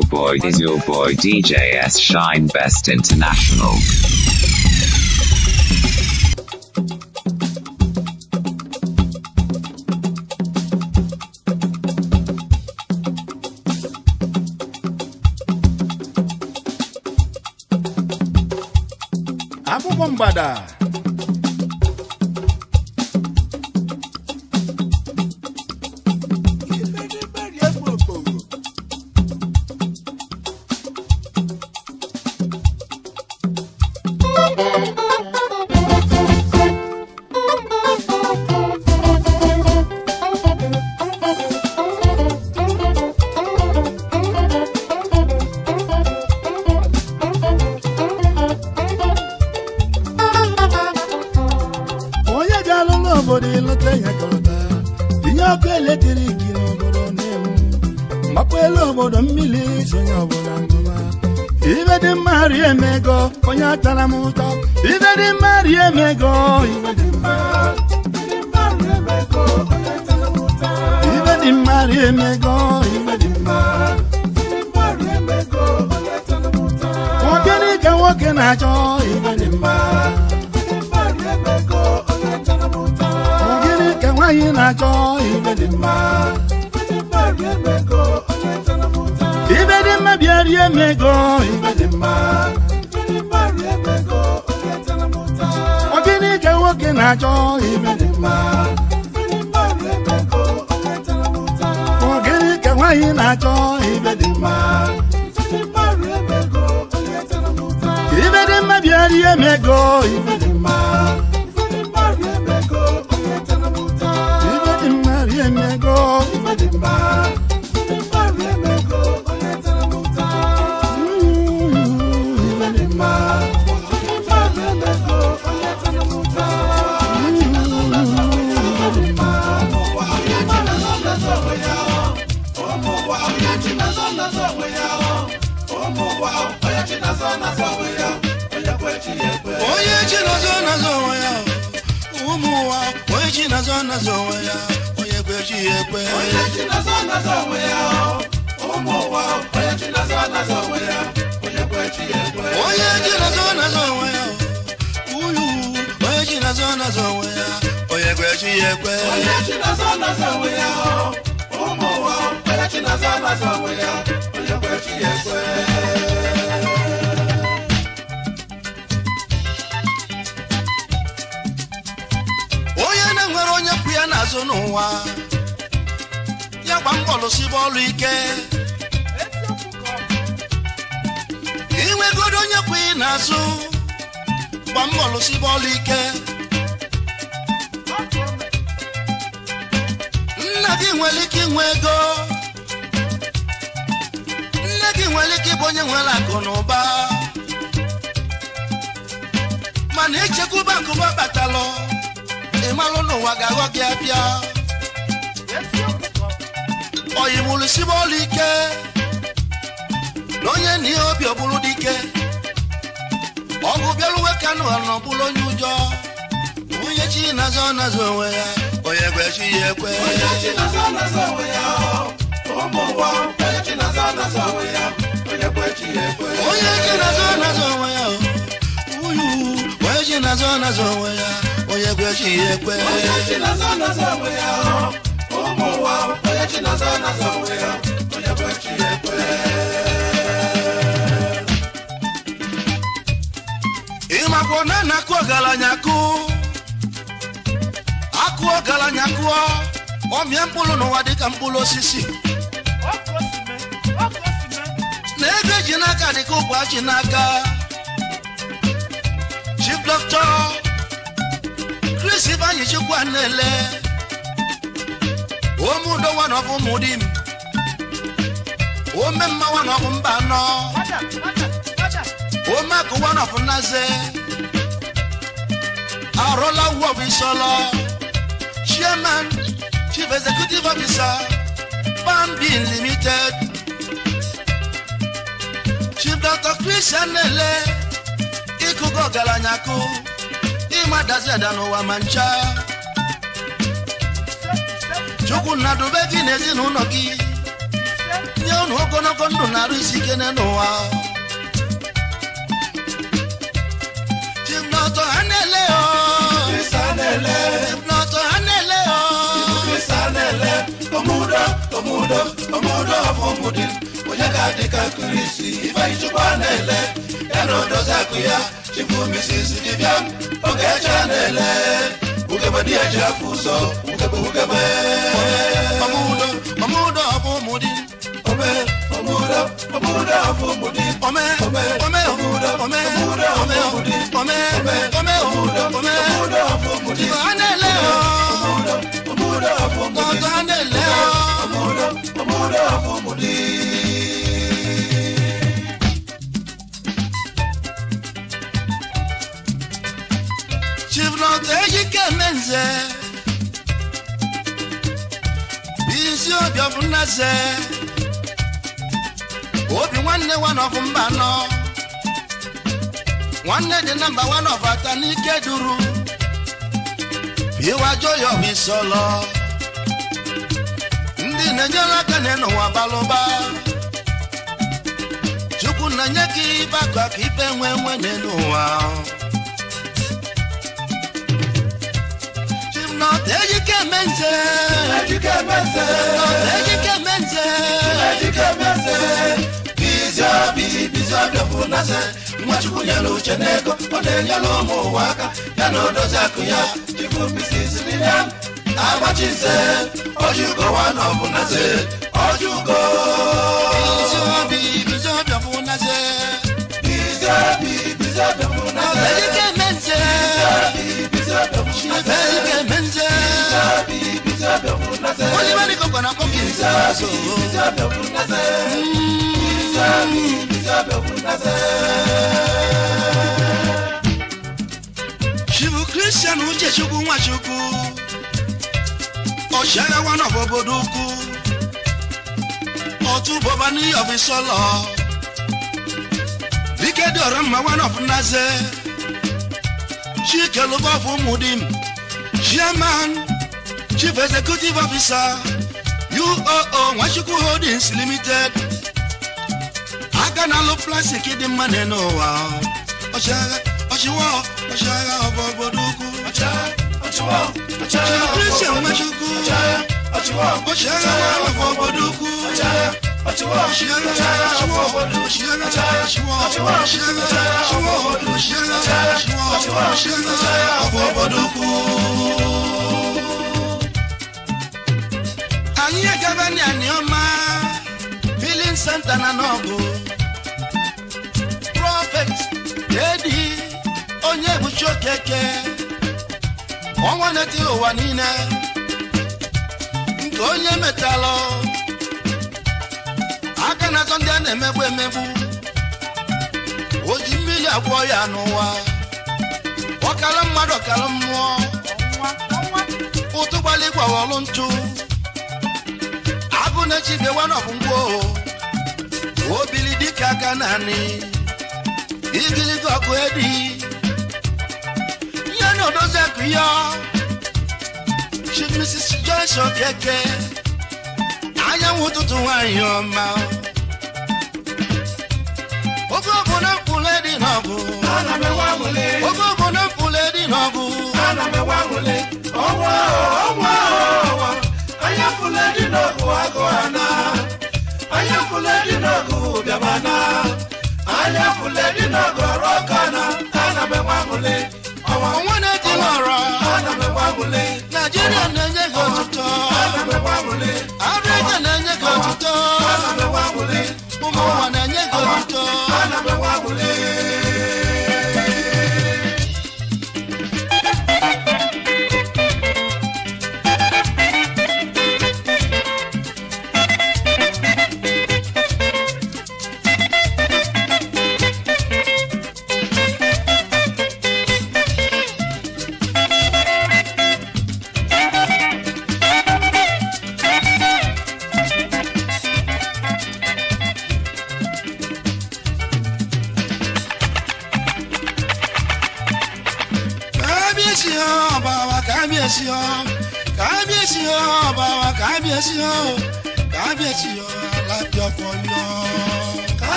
A: your boy is your boy DJ S Shine Best International.
C: Abu Bombada. onye ji nazo nazo onwe ya ekwe onye ji nazo nazo onwe ya onye kwa ya ekwe onye ji nazo onwe ya onye
B: ji onwe ya onye ya ekwe onye
C: ya n'azụ n'ụwa ya gba mbọ lụsịba ọlụ ike enwegoro onye kwụ ị n'azụ gba mbọ lụsị bọọlụ ike nna gị nwere ike inwe ego nne gị nwere ike ịbụ onye nwere akụ na ụba mana echekwuba akụba kpatalụ ịmalụ n'ụwa ga-aghọ gị abịa oyi ike na onye obi ọ dike ọgụ bịaruwe kanụ anọ chi nazo nazọ onwe ya gwechi ya ekwe onye chi nazo nazọ onwe ya ụmụ ụgbọ chi nazo nazọ onwe ya onye gwechi ya ekwe onye chi nazọ uyu chi nazọ onwe ya onye gwechi ya chi nazọ chi nazọ onwe ya onye gwechi ya ekwe agwọ na akụ ọgaranya akụ akụ ọgaranya kụọ ọmịa mkpụrụ n'ụwa dịka mkpụrụ osisi na ego eji n'aka dịka ụkwa ji n'aka chief doctor Chris Ibanyi Chukwu na-ele omeudowa n'ọbụ ụmụdi m ome mmawa n'ọbụ mba anọ ome akụwa n'ọbụ nnaze Arolawu Ofishola, Chairman, Chief Executive Officer, Bambin Limited, Chief Dr. Christian Nele, Ikuko Galanyaku, Imadasi Adano Wamancha, Chukwu Nnadube gị n'ezinụlọ gị, nye unu ogologo ndụ na arụ isi Chief Dr. Anele oh. omudo omudo omumudi onyekadị ka kurisi ife chukwa na-ele ya na odozi akụ ya chibumisisi dibịa oge eche na-ele ugebe dị eji afụ ụzọ ugebe ugebe omudo omudo omumudi ome omudo omudo omumudi ome ome ome omudo ome omudo omumudi ome ome omudo ome omudo omumudi ọ na-ele ọ ọ na-ele lọ́dọ̀ ọmọdé. Chiflọt Ejike Menze, Bisi Obiofun Nase, Obi nwanne wa n'ọfụ mba nọ, nwanne dị namba wa n'ọfụ ata n'ike duru, Iwajo Yomi Sọlọ. na enye aka na n'ụwa balụba chukwu na-enye gị ibe aka ka ibe nwee nwenye n'ụwa Ejike Nwachukwu nyere uche n'ego, ọ na-enyere ụmụ ụwa aka, ya na odozi akụ ya, bisi n'ile. Abachise, Ojuko one of Unase, Ojuko.
B: Bizabi, Bizabi of Unase. Bizabi, Bizabi
C: of Unase. Abelike Mense. Bizabi, Bizabi of Unase. Abelike Mense.
B: Bizabi, Bizabi of Unase. Olivani
C: Kokona Koki. Shibu Christian Uche Chukwu Nwachukwu mo ṣẹrẹ wọnà bòbodò kú mo tún bọba níyọ fi sọlọ bí kéde ọ̀rọ̀ mọ wọnà fún náṣẹ ṣíkẹ ló bọ fún mudim chairman chief executive officer uoo nwachukwu holdings limited aka na-alụ plastik dị mma n'ụwa ọchịagha ọchịwa ọchịagha ọbọbọdụ ukwu
B: Christian Machuku, Oshara Wafo Boduku, Oshara Shiwo, Oshara Shiwo, Oshara Shiwo, Oshara Shiwo, Oshara Wafo Boduku.
C: Anyị agaba ni Anioma, Filin Santa na Nogu, Prophet, Lady, onye bụ Chokeke. ọnwa na-etiri ụwa niile nke onye mechalụ aka na atọ ndị a na-emegbu emegbu o ji mmiri agwọ ya n'ụwa ọkala mmadụ ọkara mmụọ ụtụ gbali gwawọlụ ntụ agụ na-echi bewa n'ọgwụgwọ obili dịka aka naanị ibiligo ọkụ Nínú tó sẹ́kù yọ, Chief Mrs. Joyce Okeke, ayáwó tuntun wá yan ọmọ. Ogún ogun náà kú lẹ́dí náà bù. Bọ́lá mi wá wọlé. Ogún ogun náà kú lẹ́dí náà bù. Bọ́lá mi wá wọlé.
B: Ọwọ́ ọwọ́ ọwọ́, ayé kú lẹ́dí náà bù àgọ́ àná. Ayé kú lẹ́dí náà bù bẹ̀rẹ̀ àná. Ayé kú lẹ́dí
C: náà bù ọ̀rọ̀ kan náà. Bọ́lá mi wá wọlé.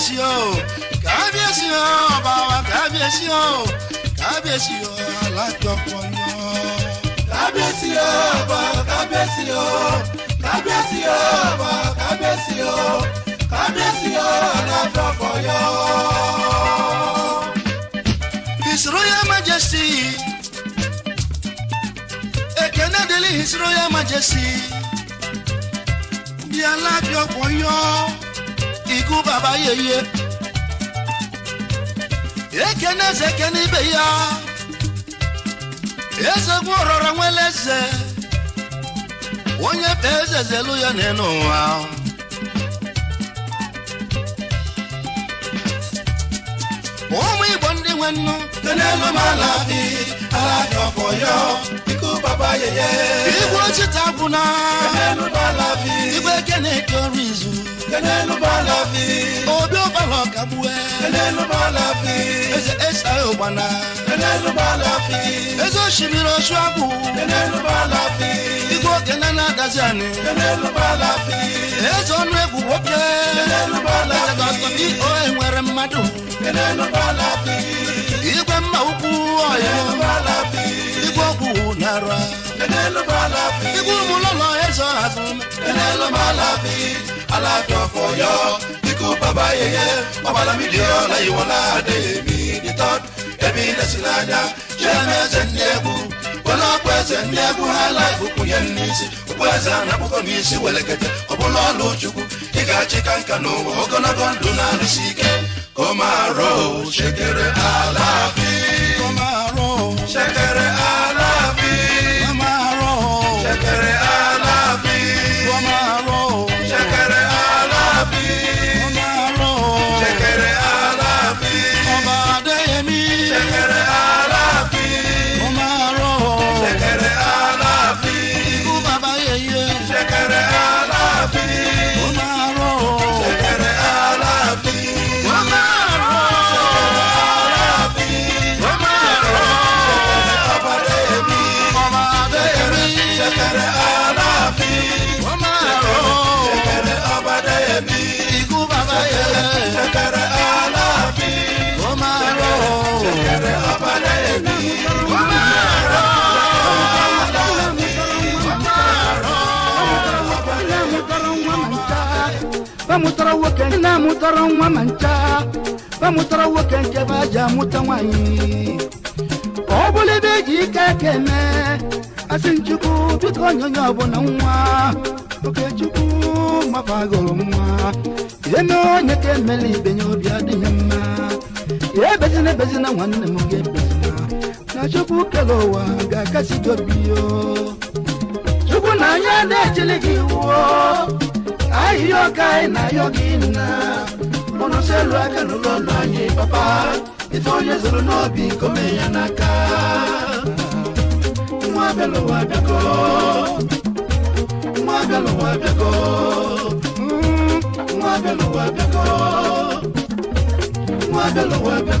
C: kábíyèsí o kábíyèsí o ọba kábíyèsí o kábíyèsí o alájọpọ̀ yan.
B: kábíyèsí o ọba kábíyèsí o kábíyèsí o ọba kábíyèsí o kábíyèsí
C: o alájọpọ̀ yan. His Royal Majesty ekene deli His Royal Majesty bí alájọpọ̀ yan. ikú bàbá yeye na eze eke n'ibe ya ezegwu ọrọrọ nwere eze onye pe eze zelu ya n'elu ụwa ụmụ igbo ndị nwe nnu tenelu m alabi ala ọfọ yọ ikú bàbá yeye igwe ochita gwụna igwe ekene eke ọrụ izu kenelu balafi. odo bala kabue. kenelu balafi. eze esa obana. kenelu balafi. ezo simiro suabu. kenelu balafi. igo kenana daziani. kenelu balafi. ezo nu egwu nwoke. kenelu balafi. eze gbasọ bi o enwere mmadụ. kenelu balafi. igwe mma ukwu ọyọ. kenelu balafi. igwe ọgwụ nara. kenelu balafi. igwe ụmụ lọlọ ezo azụ. kenelu balafi. alájọ kò yọ ikú bàbá yẹyẹ ọba lámìdí ọláyíwọlá adéyẹmí the third èmi lẹ́sìlájà jẹ́mẹ́sẹ̀ ní ẹ̀kú ọlọ́pẹ̀sẹ̀ ní ẹ̀kú aláìkú kù yẹn ní ìsì òkú ẹ̀sẹ̀ anábùkọ ní ìsì wẹ̀lẹ̀kẹ̀tẹ̀ ọ̀bọ̀lọ́ lójúkú ìkàchí kàǹkà n'ụwa ogologo ndụ na-arụsi ike kò máa rò ṣèkèrè àlàáfíà kò máa rò ṣèkèrè àlàáfíà. woke na mụtara nwa ma ncha ba mụtara nwoke nke ba ji amụta nwanyị ka ọ bụrụ ebe eji ike ekene asị nchukwu biko onyonyo ọbụla nwa okechukwu mapagoro nwa eme onye ka emela ibenye obi adịghị mma ya ebezina ebezina nwanne m ga-ebezina na chukwu kere ụwa ga-akasi gị obi yo chukwu na anya na-echili gị
B: iwuo
C: ahiyoka enayogina onoselu aka n'ụlọọlụ anyị papa ife onye zụrụ n'obi nkome ya n'aka
B: nwa abịalụwa abịago nwa abịalụwa abịago nwa abịalụwa abịago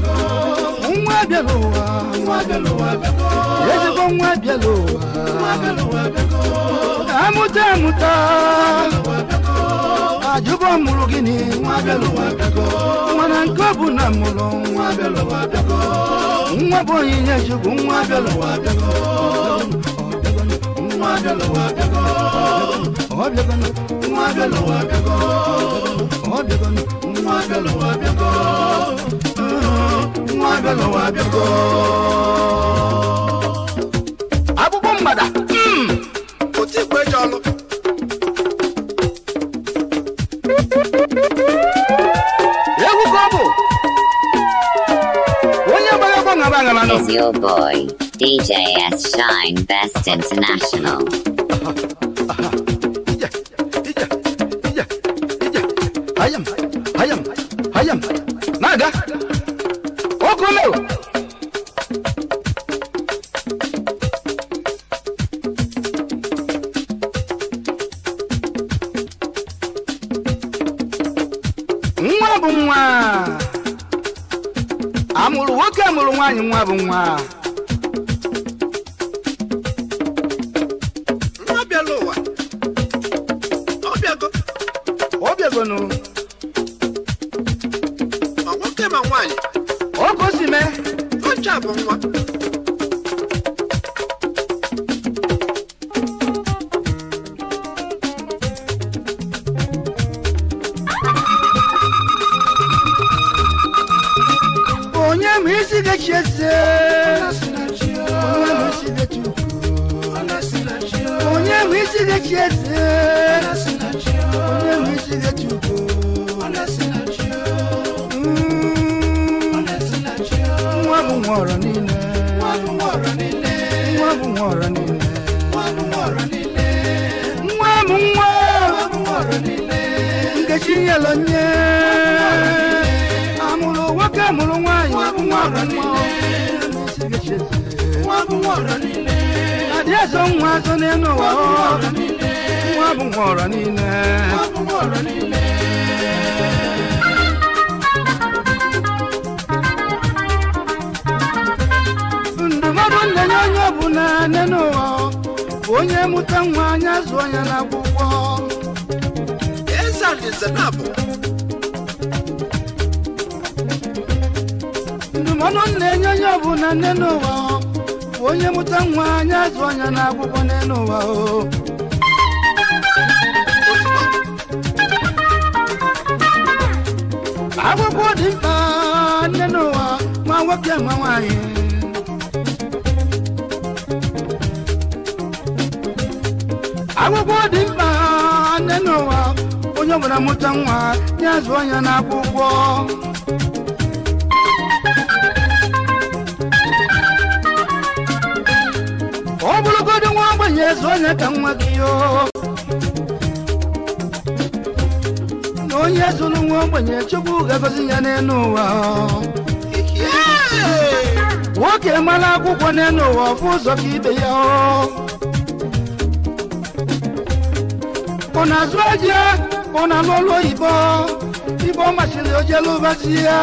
B: nwa nwa abịa n'ụwa
C: ezigbo nwa abịa n'ụwa amụta amụta ajụbọ mụrụ gịnị nwa na nke ọ bụ na mụrụ nwa bụ onyinye chukwu nwa abịa n'ụwa
B: Madalo Wadago, Oblagon, Madalo Wadago, Oblagon, Madalo Wadago, Madalo Wadago.
A: onye gbara gbọ̀ngàn gbàngàn lọ. It's your boy. DJS Shine Best International.
C: I am, I am, I am, Naga,
B: Okumelo. nwa bụ nwa
C: amụrụ nwoke amụrụ nwaanyị nwa bụ si de ti ese onemi si de ti ugo. Nwa bụ nwa ọrọ niile. Nwa bụ nwa ọrọ niile.
B: Nwa bụ nwa ọrọ niile. Nwa bụ nwa ọrọ niile. Nwa bụ nwa. Amụrụ nwoke mụrụ nwaanyị. Nwa bụ nwa ọrọ niile.
C: ya so nwa azụ n'elu ụwa nwa bụ nwa ọrọ niile ndụmọdụ nne ya onye na nne n'ụwa bụ onye mụta nwa anya ọnya na akwụkwọ. ndụmọdụ nne enye onye ọbụla nne n'ụwa onye mụta nwa nye azụ anya akwụkwọ n'elu ụwa o akwụkwọ dị mkpa nne n'ụwa nwa nwoke nwa nwanyị akwụkwọ dị mkpa nne n'ụwa onye ọbụla mụta nwa nye azụ anya akwụkwọ. zo na kan wagiyo n'onye zụrụ nwa ogbenye chukwu ga-agọzi ya n'elu ụwa nwoke mara akwụkwọ n'elu ụwa ọfụ ụzọ ka ibe ya ọ na-azụ aja ọ na-alụ ọlụ oyibo ibe ọ masịrị ojelu ụbazi ya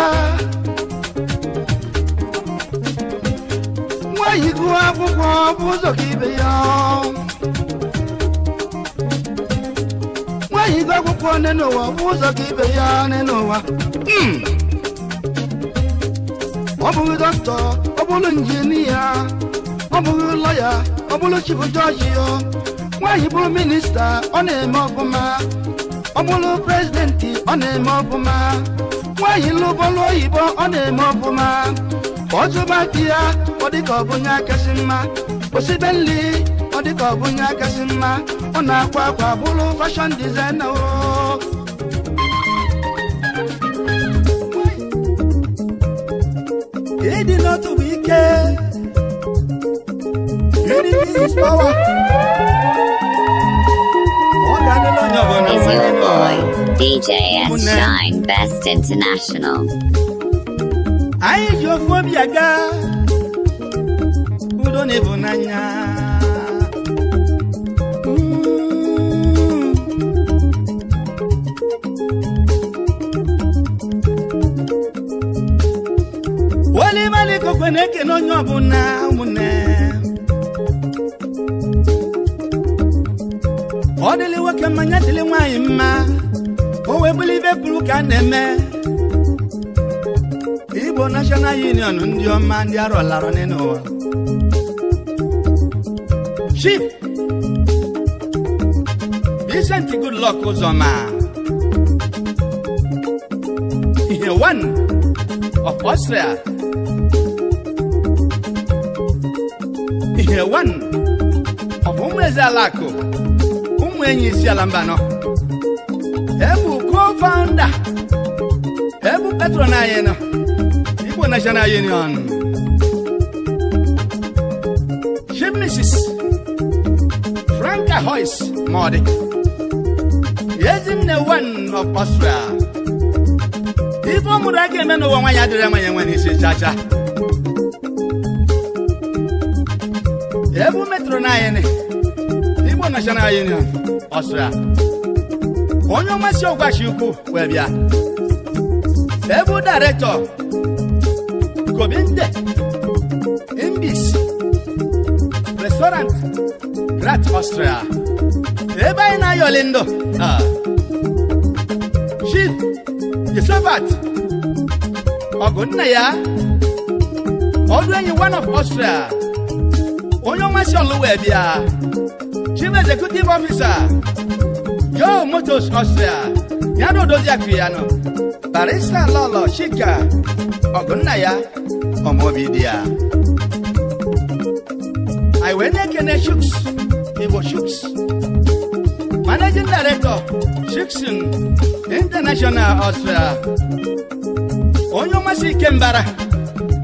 C: nwa yigụ akwụkwọ ọfụ ụzọ ka ibe ya afọ nne n'ụwa ụzọ ka ibe ya nne n'ụwa ọ hmm. bụghị dọkịta ọ bụrụ injinia ọ bụghị lọya ọ bụrụ chibu jọji ya nwaanyị bụrụ minista ọ na-eme ọfụma ọ bụrụ prezidenti ọ na-eme ọfụma nwaanyị lụbọlụ oyibo ọ na-eme ọfụma ọzụba di ya ọ dịka ọ bụ onye akasị mma osibeli ọ dịka ọ bụ onye akasị mma ọ na-akwa akwa akwa fashion designer unity
A: is power Boy, DJ S. Shine, Best International.
C: chineke na-ekene onye ọbụla ụmụnne
B: ọ dịlị nwoke mmanya dịlị
C: nwanyị mma o wee bụrụ ibe ka a na-eme igbo nashọnal union ndị ọma ndị arọlara n'ụwa chief Vincent Goodluck Uzoma ihe one of ihe wan ọ bụ ụmụ eze ala akụ ụmụ enyi isi ala mba nọ ebu co-founder ebu patron anyị nọ igbo national union chief mrs franka hoyce ma ọ dị ezinne wan of Austria ife ọ mụrụ aka eme n'ụwa nwaanyị adịrị ama ya enwe n'isi chacha ebu metụrụ na anyị igbo union Austria. onye ọmasị ọgwachi ukwu wee bịa ebu gobinde imbis restaurant grat Austria. ebe anyị na-ayọli ndụ chief josephat ọgụ nna ya ọdụ one of Austria onye ọnwa si ọlụwa bịa chief executive officer joe motos austria ya na odozi barista lolo shika, ọgụnna ya ọmọbi dị ya anyị wee na-ekene shuks igbo shuks managing director shuksin international austria onye ọnwa si ike mbara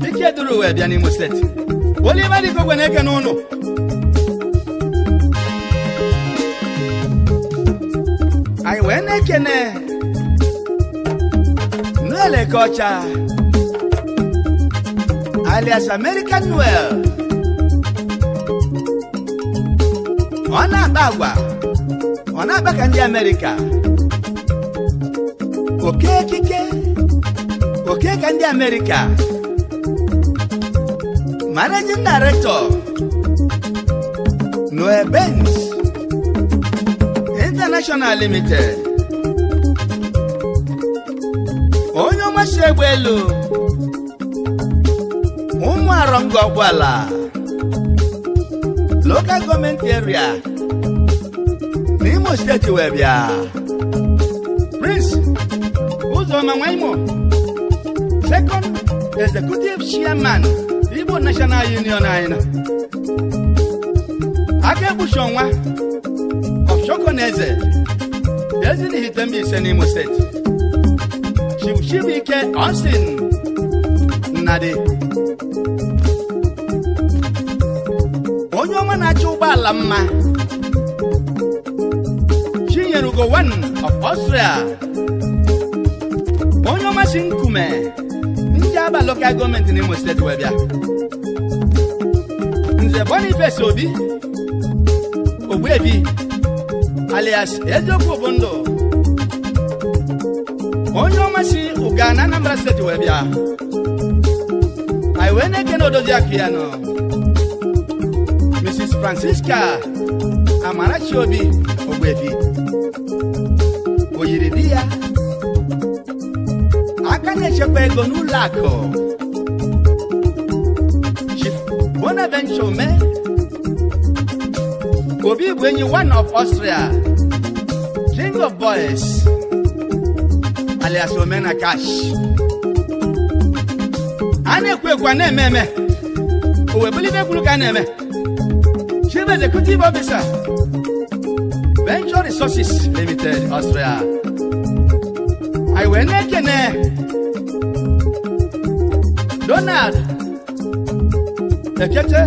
C: ike Oliver Igwe na-eke n'ụnụ anyị wee na-ekene Nleleke ọcha alias American Noel ọ ọ na-akpa ka ndị Amerịka oke oke ka ndị Managing Director Noe Benz International Limited onye ọmasị egbe elu ụmụ arọngọ ọgwala Local Government Area n'Imo Steeti wee bịa Prince Uzoma Nwaimo Second Executive Chairman bụ national union anyị na aka egbuchi ọnwa ọfshọkọ na eze ezi na ise n'imo steeti chibuchibuike osin nnadi onye ọma na-achọ ụgbọala mma chinyere ugo one of Austria onye ọma si nkume ndị aba lokal gọọmenti n'imo steeti wee bịa Eze Boniface Obi Ogbuefi alias Eziokwu Obondo onye ọma si Anambra steeti wee bịa anyị wee na Mrs. Francisca Amarachi Obi Ogbuefi o yiri di ya aka na-echekwa ego Honorable Chome, Obi Gwenyi, one of Austria, King of Boys, alias Omena Cash. A na-ekwu ekwu a na-eme eme, owe bulite ekwuru ka a na-eme. Chief Executive Officer, Venture Resources Limited, Austria. I wee na-ekene Donald echeche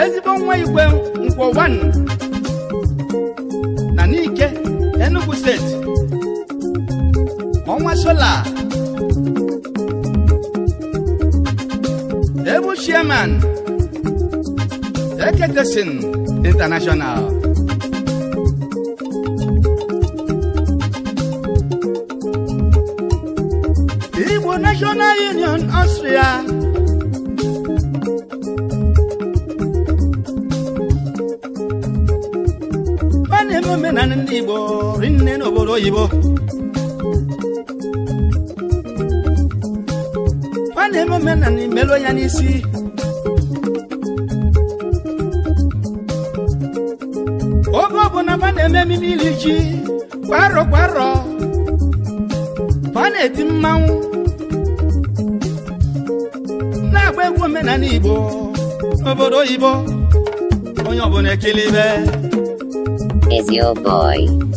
C: ezigbo nwa igwe nkwo na n'ike Enugu steeti ọnwa sola ebu chairman eketesin international oyibo ọ na-eme ya n'isi oge ọbụla ma na-eme mmiri ji kwarọ kwarọ ọ na-eti mmanwụ na-agba egwu omenala igbo obodo oyibo onye ọbụla ekele ibe
A: Is your boy.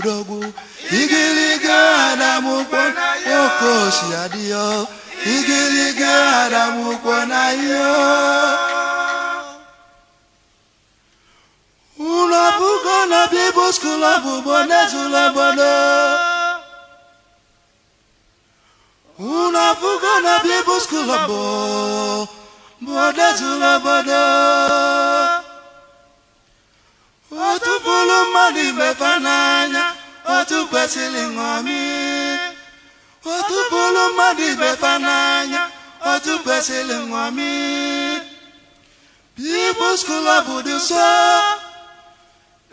C: udogo igiligana mukwana okosi adio igiligana mukwana yo unapukana bibuskula bubonezula bono unapukana bibuskula bo bonezula bono otu pụrụ mmadụ ibefe n'anya otu kwesịrị ṅomi otu pụrụ mmadụ ibefe n'anya otu kwesịrị ṅomi People's Club bụ dị nsọ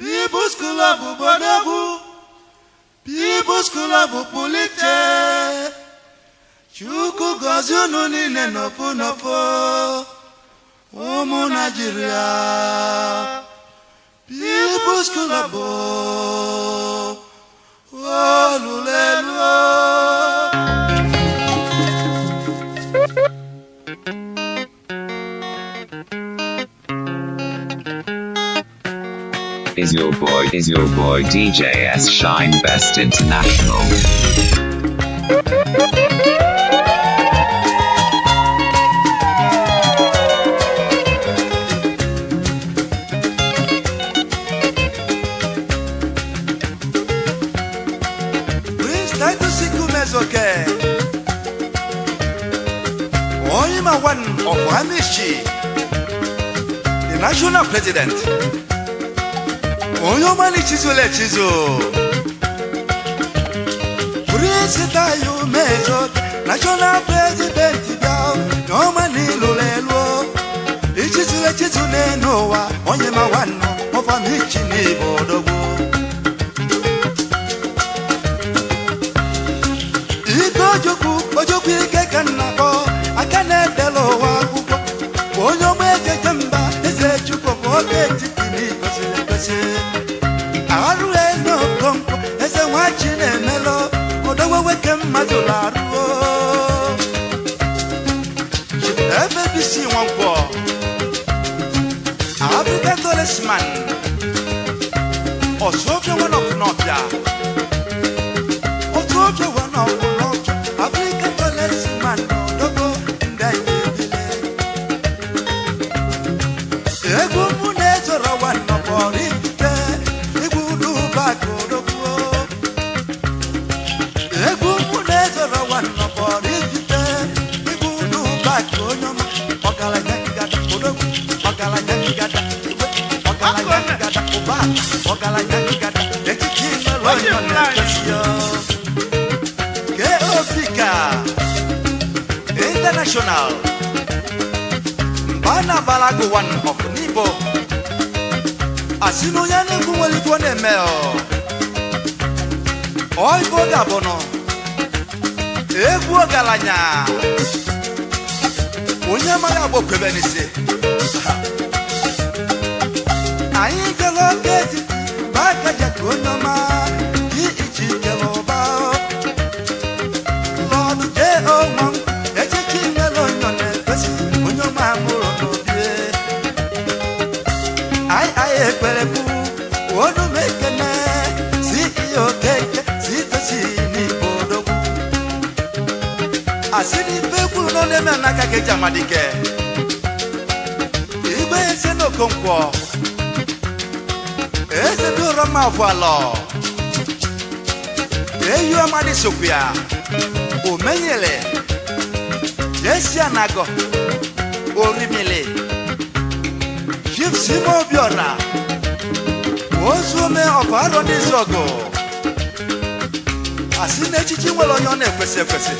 C: People's Club bụ bodogwu People's Club bụ pụlite Chukwu gọzie unu niile n'ofu n'ofu ụmụ Naijiria. Is
A: your boy, is your boy DJS Shine Best International?
C: the national president Oyomale Chizule Chizo Kurisita yu mezo National president yao Noma nilulelwo Ichizule Chizule noa Onye mawano Mova michi ni bodogo Ito joku Ojoku ike kanako Akane delo wakuku kemmadolaruo ebe bisi nwagwọ abibetolesman ọsụ ofe nwanọkụ n'ọbịa number one of the Asinu as you know, tó ní mẹ́ ọ. Ọ̀ìbó dàbọ̀ nọ. Egwu ọ̀gàlànyà. Onye amaghị agbọ kwebe n'isi. Anyị gara oge eji, ma aka jẹ ka onye ọma. ke jamadi ke igbe ese n'okonkwo eze dị ụrọ mma vụalọ eyi ọmadị sokwu ya omenyele jesi anagọ orimili jifsime obiọra ozuome ọvarọ n'ịzọgụ zogo asine nwere onye ọ na-ekwesị ekwesị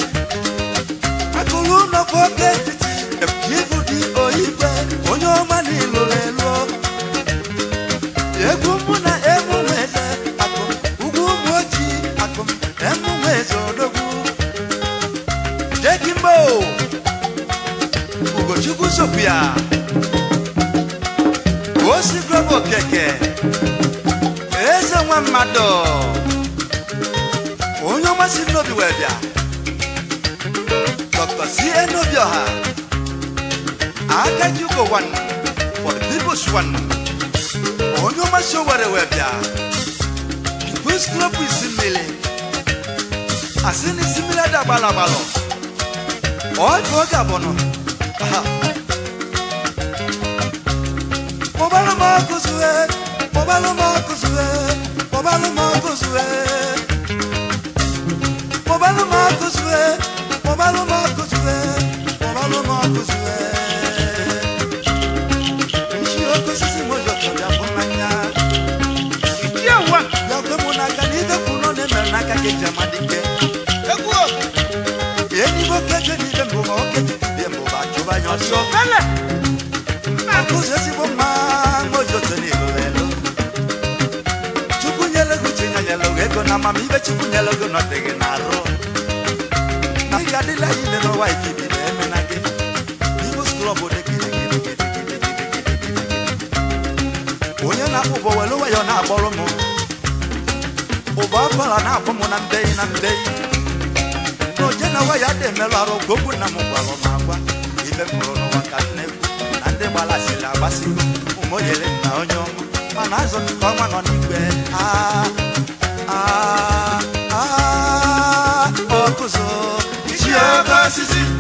C: iwu nọkwa oke etiti efu ibu dị oyibe onye ọma n'ilo one, for the people's one. On your macho, whatever, People's Club is in Millie. As in is similar to Balabalo. All for Gabono. Mobile Marcus, Mobile Marcus, Mobile Marcus, Mobile Marcus, Mobile Marcus. mgbe chukwu n'elogo nọdịghị na-arụ na ị ga-adịla yi ile n'ọwa ikiri na-eme na gị n'Imo School obodo onye na-akpụ ụbọ welu nwayọ na-akpọrọ m ụbọ ọbụla na-akpọ m na mbeyi na mbeyi na oje na waya dị emerụ arụ gogbu na m gwara m agwa
B: ibe m hụrụ n'ụwa ka m na-ekwu
C: na ndị gbalasiri agbasigo ụmụnyere na onye ọma mana azụ nke ọnwa nọ n'igwe aa ah, aa ah. kuzo. Chia kasisi.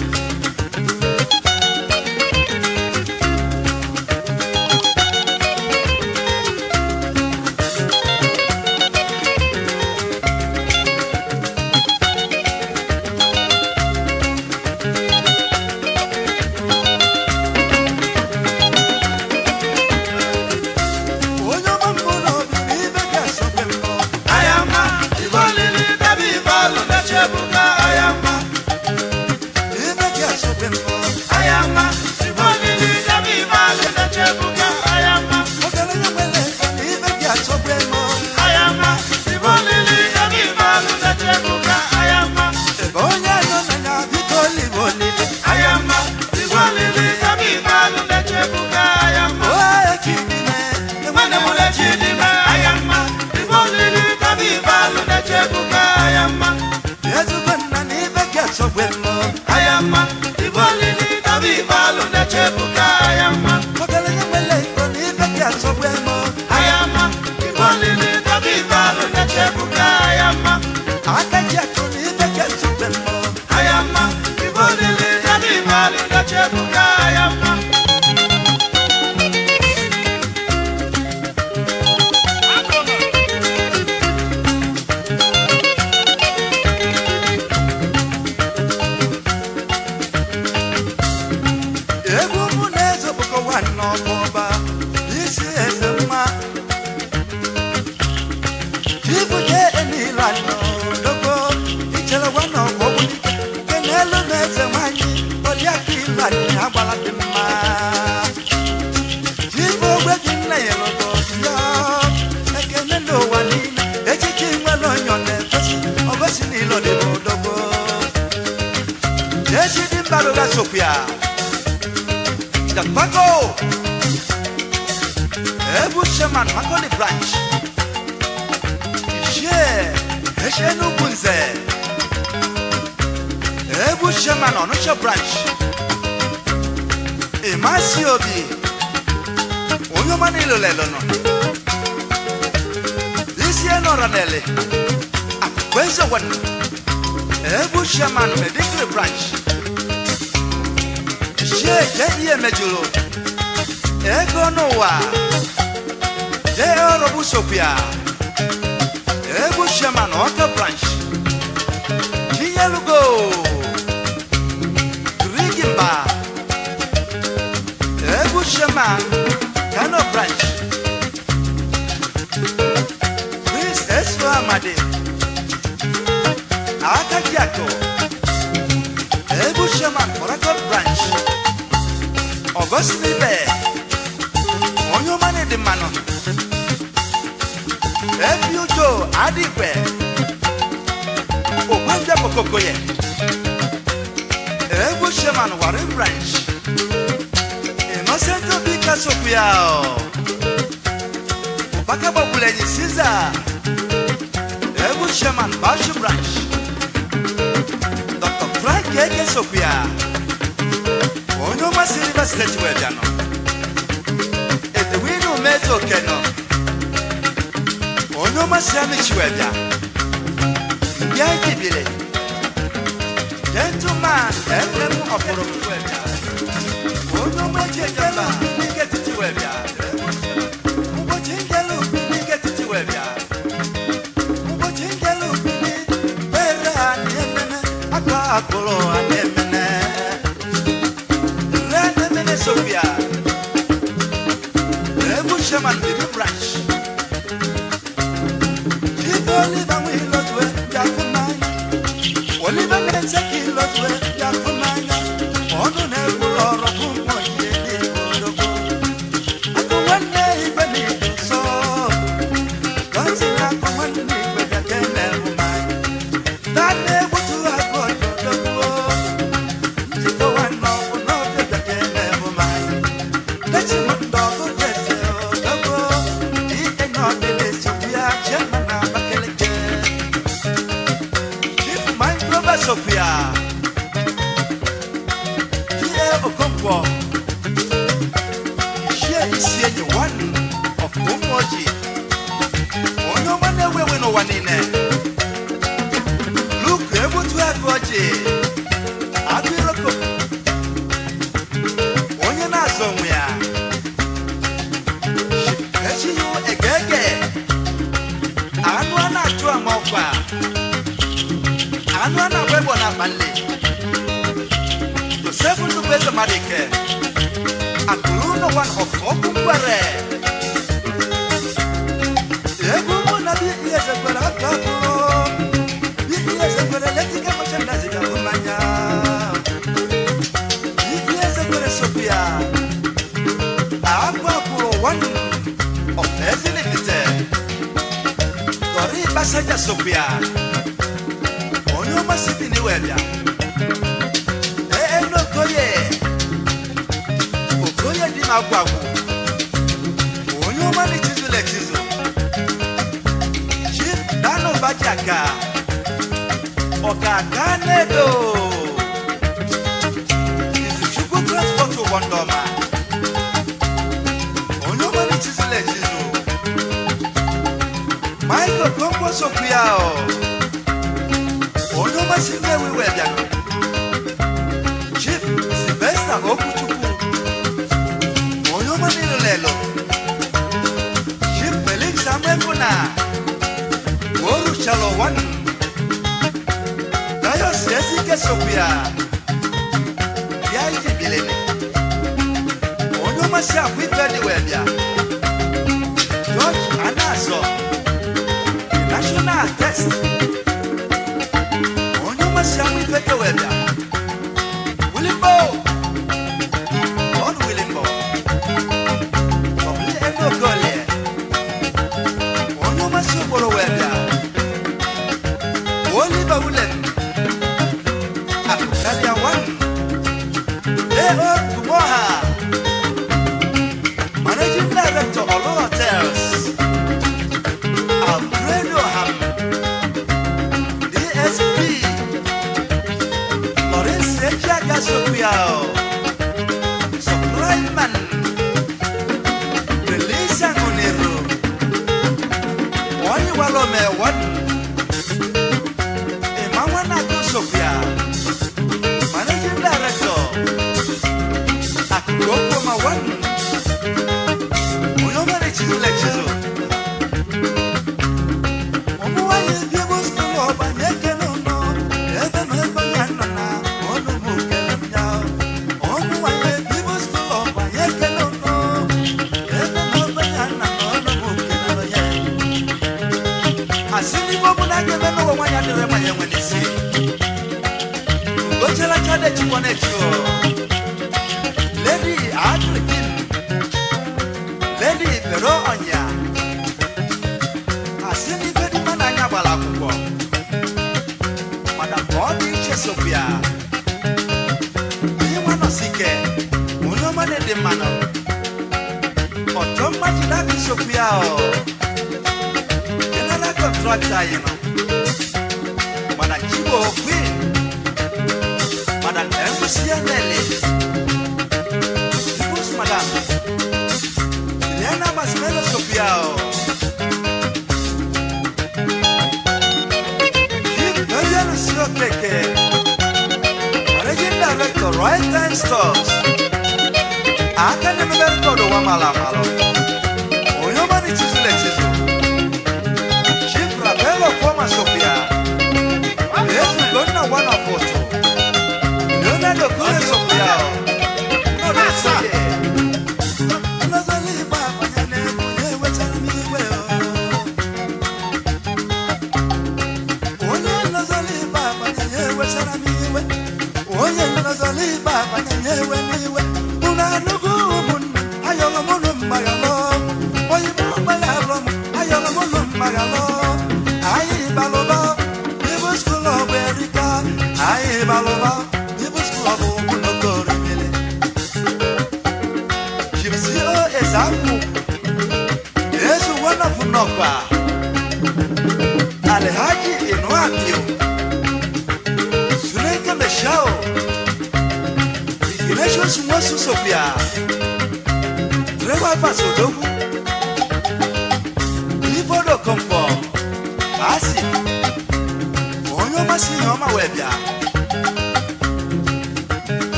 C: Ethiopia. Dagbago. Ebu Chairman Makoni Branch. Ishe. Eshe Nugunze. Ebu Chairman Onusha Branch. Imasi Obi. Onyomani Lolelono. Isi Enoranele. Akwezo ah, Wenu. Ebu Chairman Medical Branch ike je ihe mejuru ego n'ụwa jee ọrụ bụ sopia shema na ọka branch chinyelugo rigimba egwu shema kano branch prince eso amadi akajiako egwu shema korakot branch ọgọsimi bẹẹ onye ọma na-ede mmanụ ebi ujo adịgwe ogbanja kokoko ya egwu sheman wari branch innocent e obi kasokwu ya ọbaka gbagburu enyi siza egwu sheman bashi branch dr frank eke sokwu ya onuma silver state wɛ da no edewi nu meto kɛ no onuma samichi wɛ da bia jibire gentleman ɛfɛmu ɔforofu wɛ da onuma jɛjɛba nike titi wɛ da mbɔchinjɛlu nike titi wɛ da mbɔchinjɛlu ni bɛrɛ ani ɛmɛmɛ akɔ akɔlɔ ani Sophia. Revolution and the branch. ọ̀gàgà lẹ́dọ̀ ìsìnkú transport wọn dọ̀mà olówó ní títílẹ̀ jìnnú máìkò tó ń bọ̀ sókúyà ọ̀ olówó sí mẹ́wìí wẹ̀dẹ̀ chief sylvester okuchukwu olówó nílẹ̀ lọ chief felix amẹ́kúnà wọ́ọ̀rù ṣàlọ̀ wọ́nù yesu bia bia yi bile ni ɔnyɔma si afi bɛ di wɛ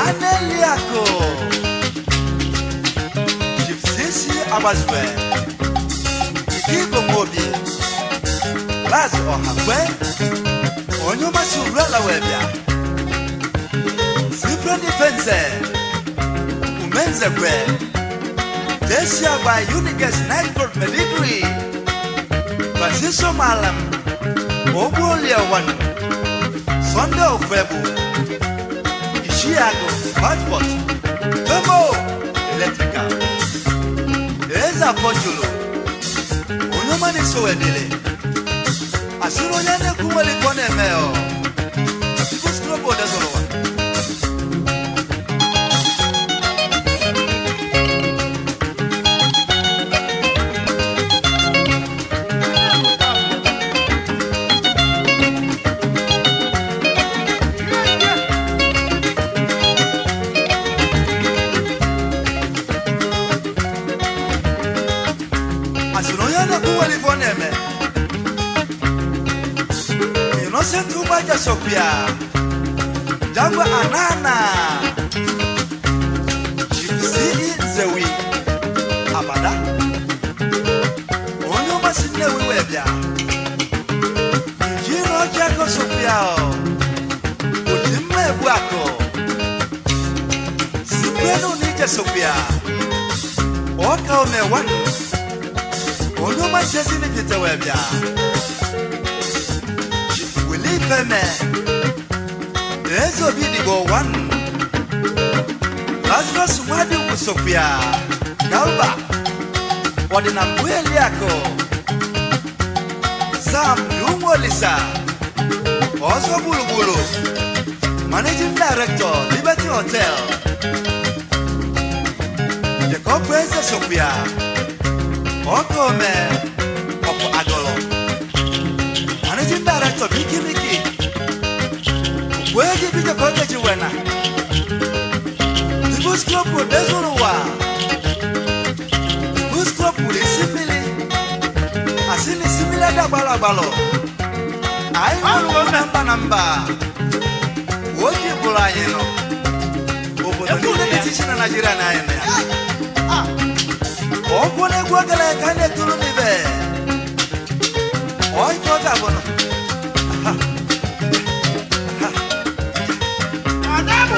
C: Aneliako Jibsisi Abazwe Ikigo Mobi Baz Ohakwe Onyuma Surela Webia Zibra Defense Umenze Kwe Desia by Unigas Nightford Medigree Francisco Malam Obu Oliawan Sunday of February Chiago, Hotpot, Bemo, Electrical, Eza Pochulo, Onomani Sowedele, Asiro Yane Kumali Kone Meo. Arabia, Jangwa Anana, Jibisi Zewi, Amada, Onyo Masine Webia, Jino Jago Sopiao, Ujime Bwako, Sipeno Nija Sopia, Oka Omewan, Onyo Masine Kita Webia, Willie Pemé. Enzo Bidigo one. Lazima Sumadi Musopia. Galba. Wadina kweli yako. Sam Dungo Lisa. Oso Bulubulu. Managing Director, Liberty Hotel. Jacob Enzo Sopia. Oko me. Oko Agolo. Managing Director, Miki Miki. Where did you go get you when The bus club would there's all a while. The bus club would is similar. I seen a similar dabalabalo. I don't remember number. What you pull I know. Obodo ni decision na Nigeria na ene. Ogwone gwagala kane tulu nibe. Oy kota bono.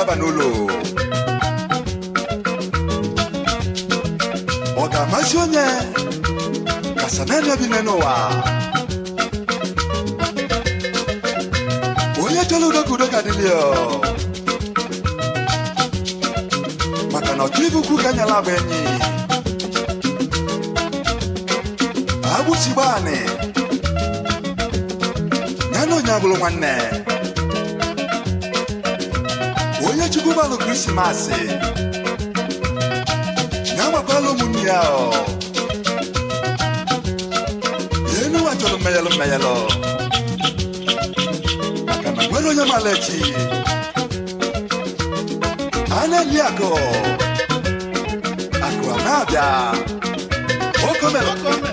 C: Cavanolo. Ondamasi onye kasanene bi n'enu ụwa. Onye chọrọ udokudo ka dị lio. Maka na ọchụ ibukwu ka nyala abụ enyi. Agbụsi gbaanị. manu krismasi nyamakwa lomunia o yenu wajolo meyelo meyelo makana gwelo nyamalechi aneliako akuanabia okomelo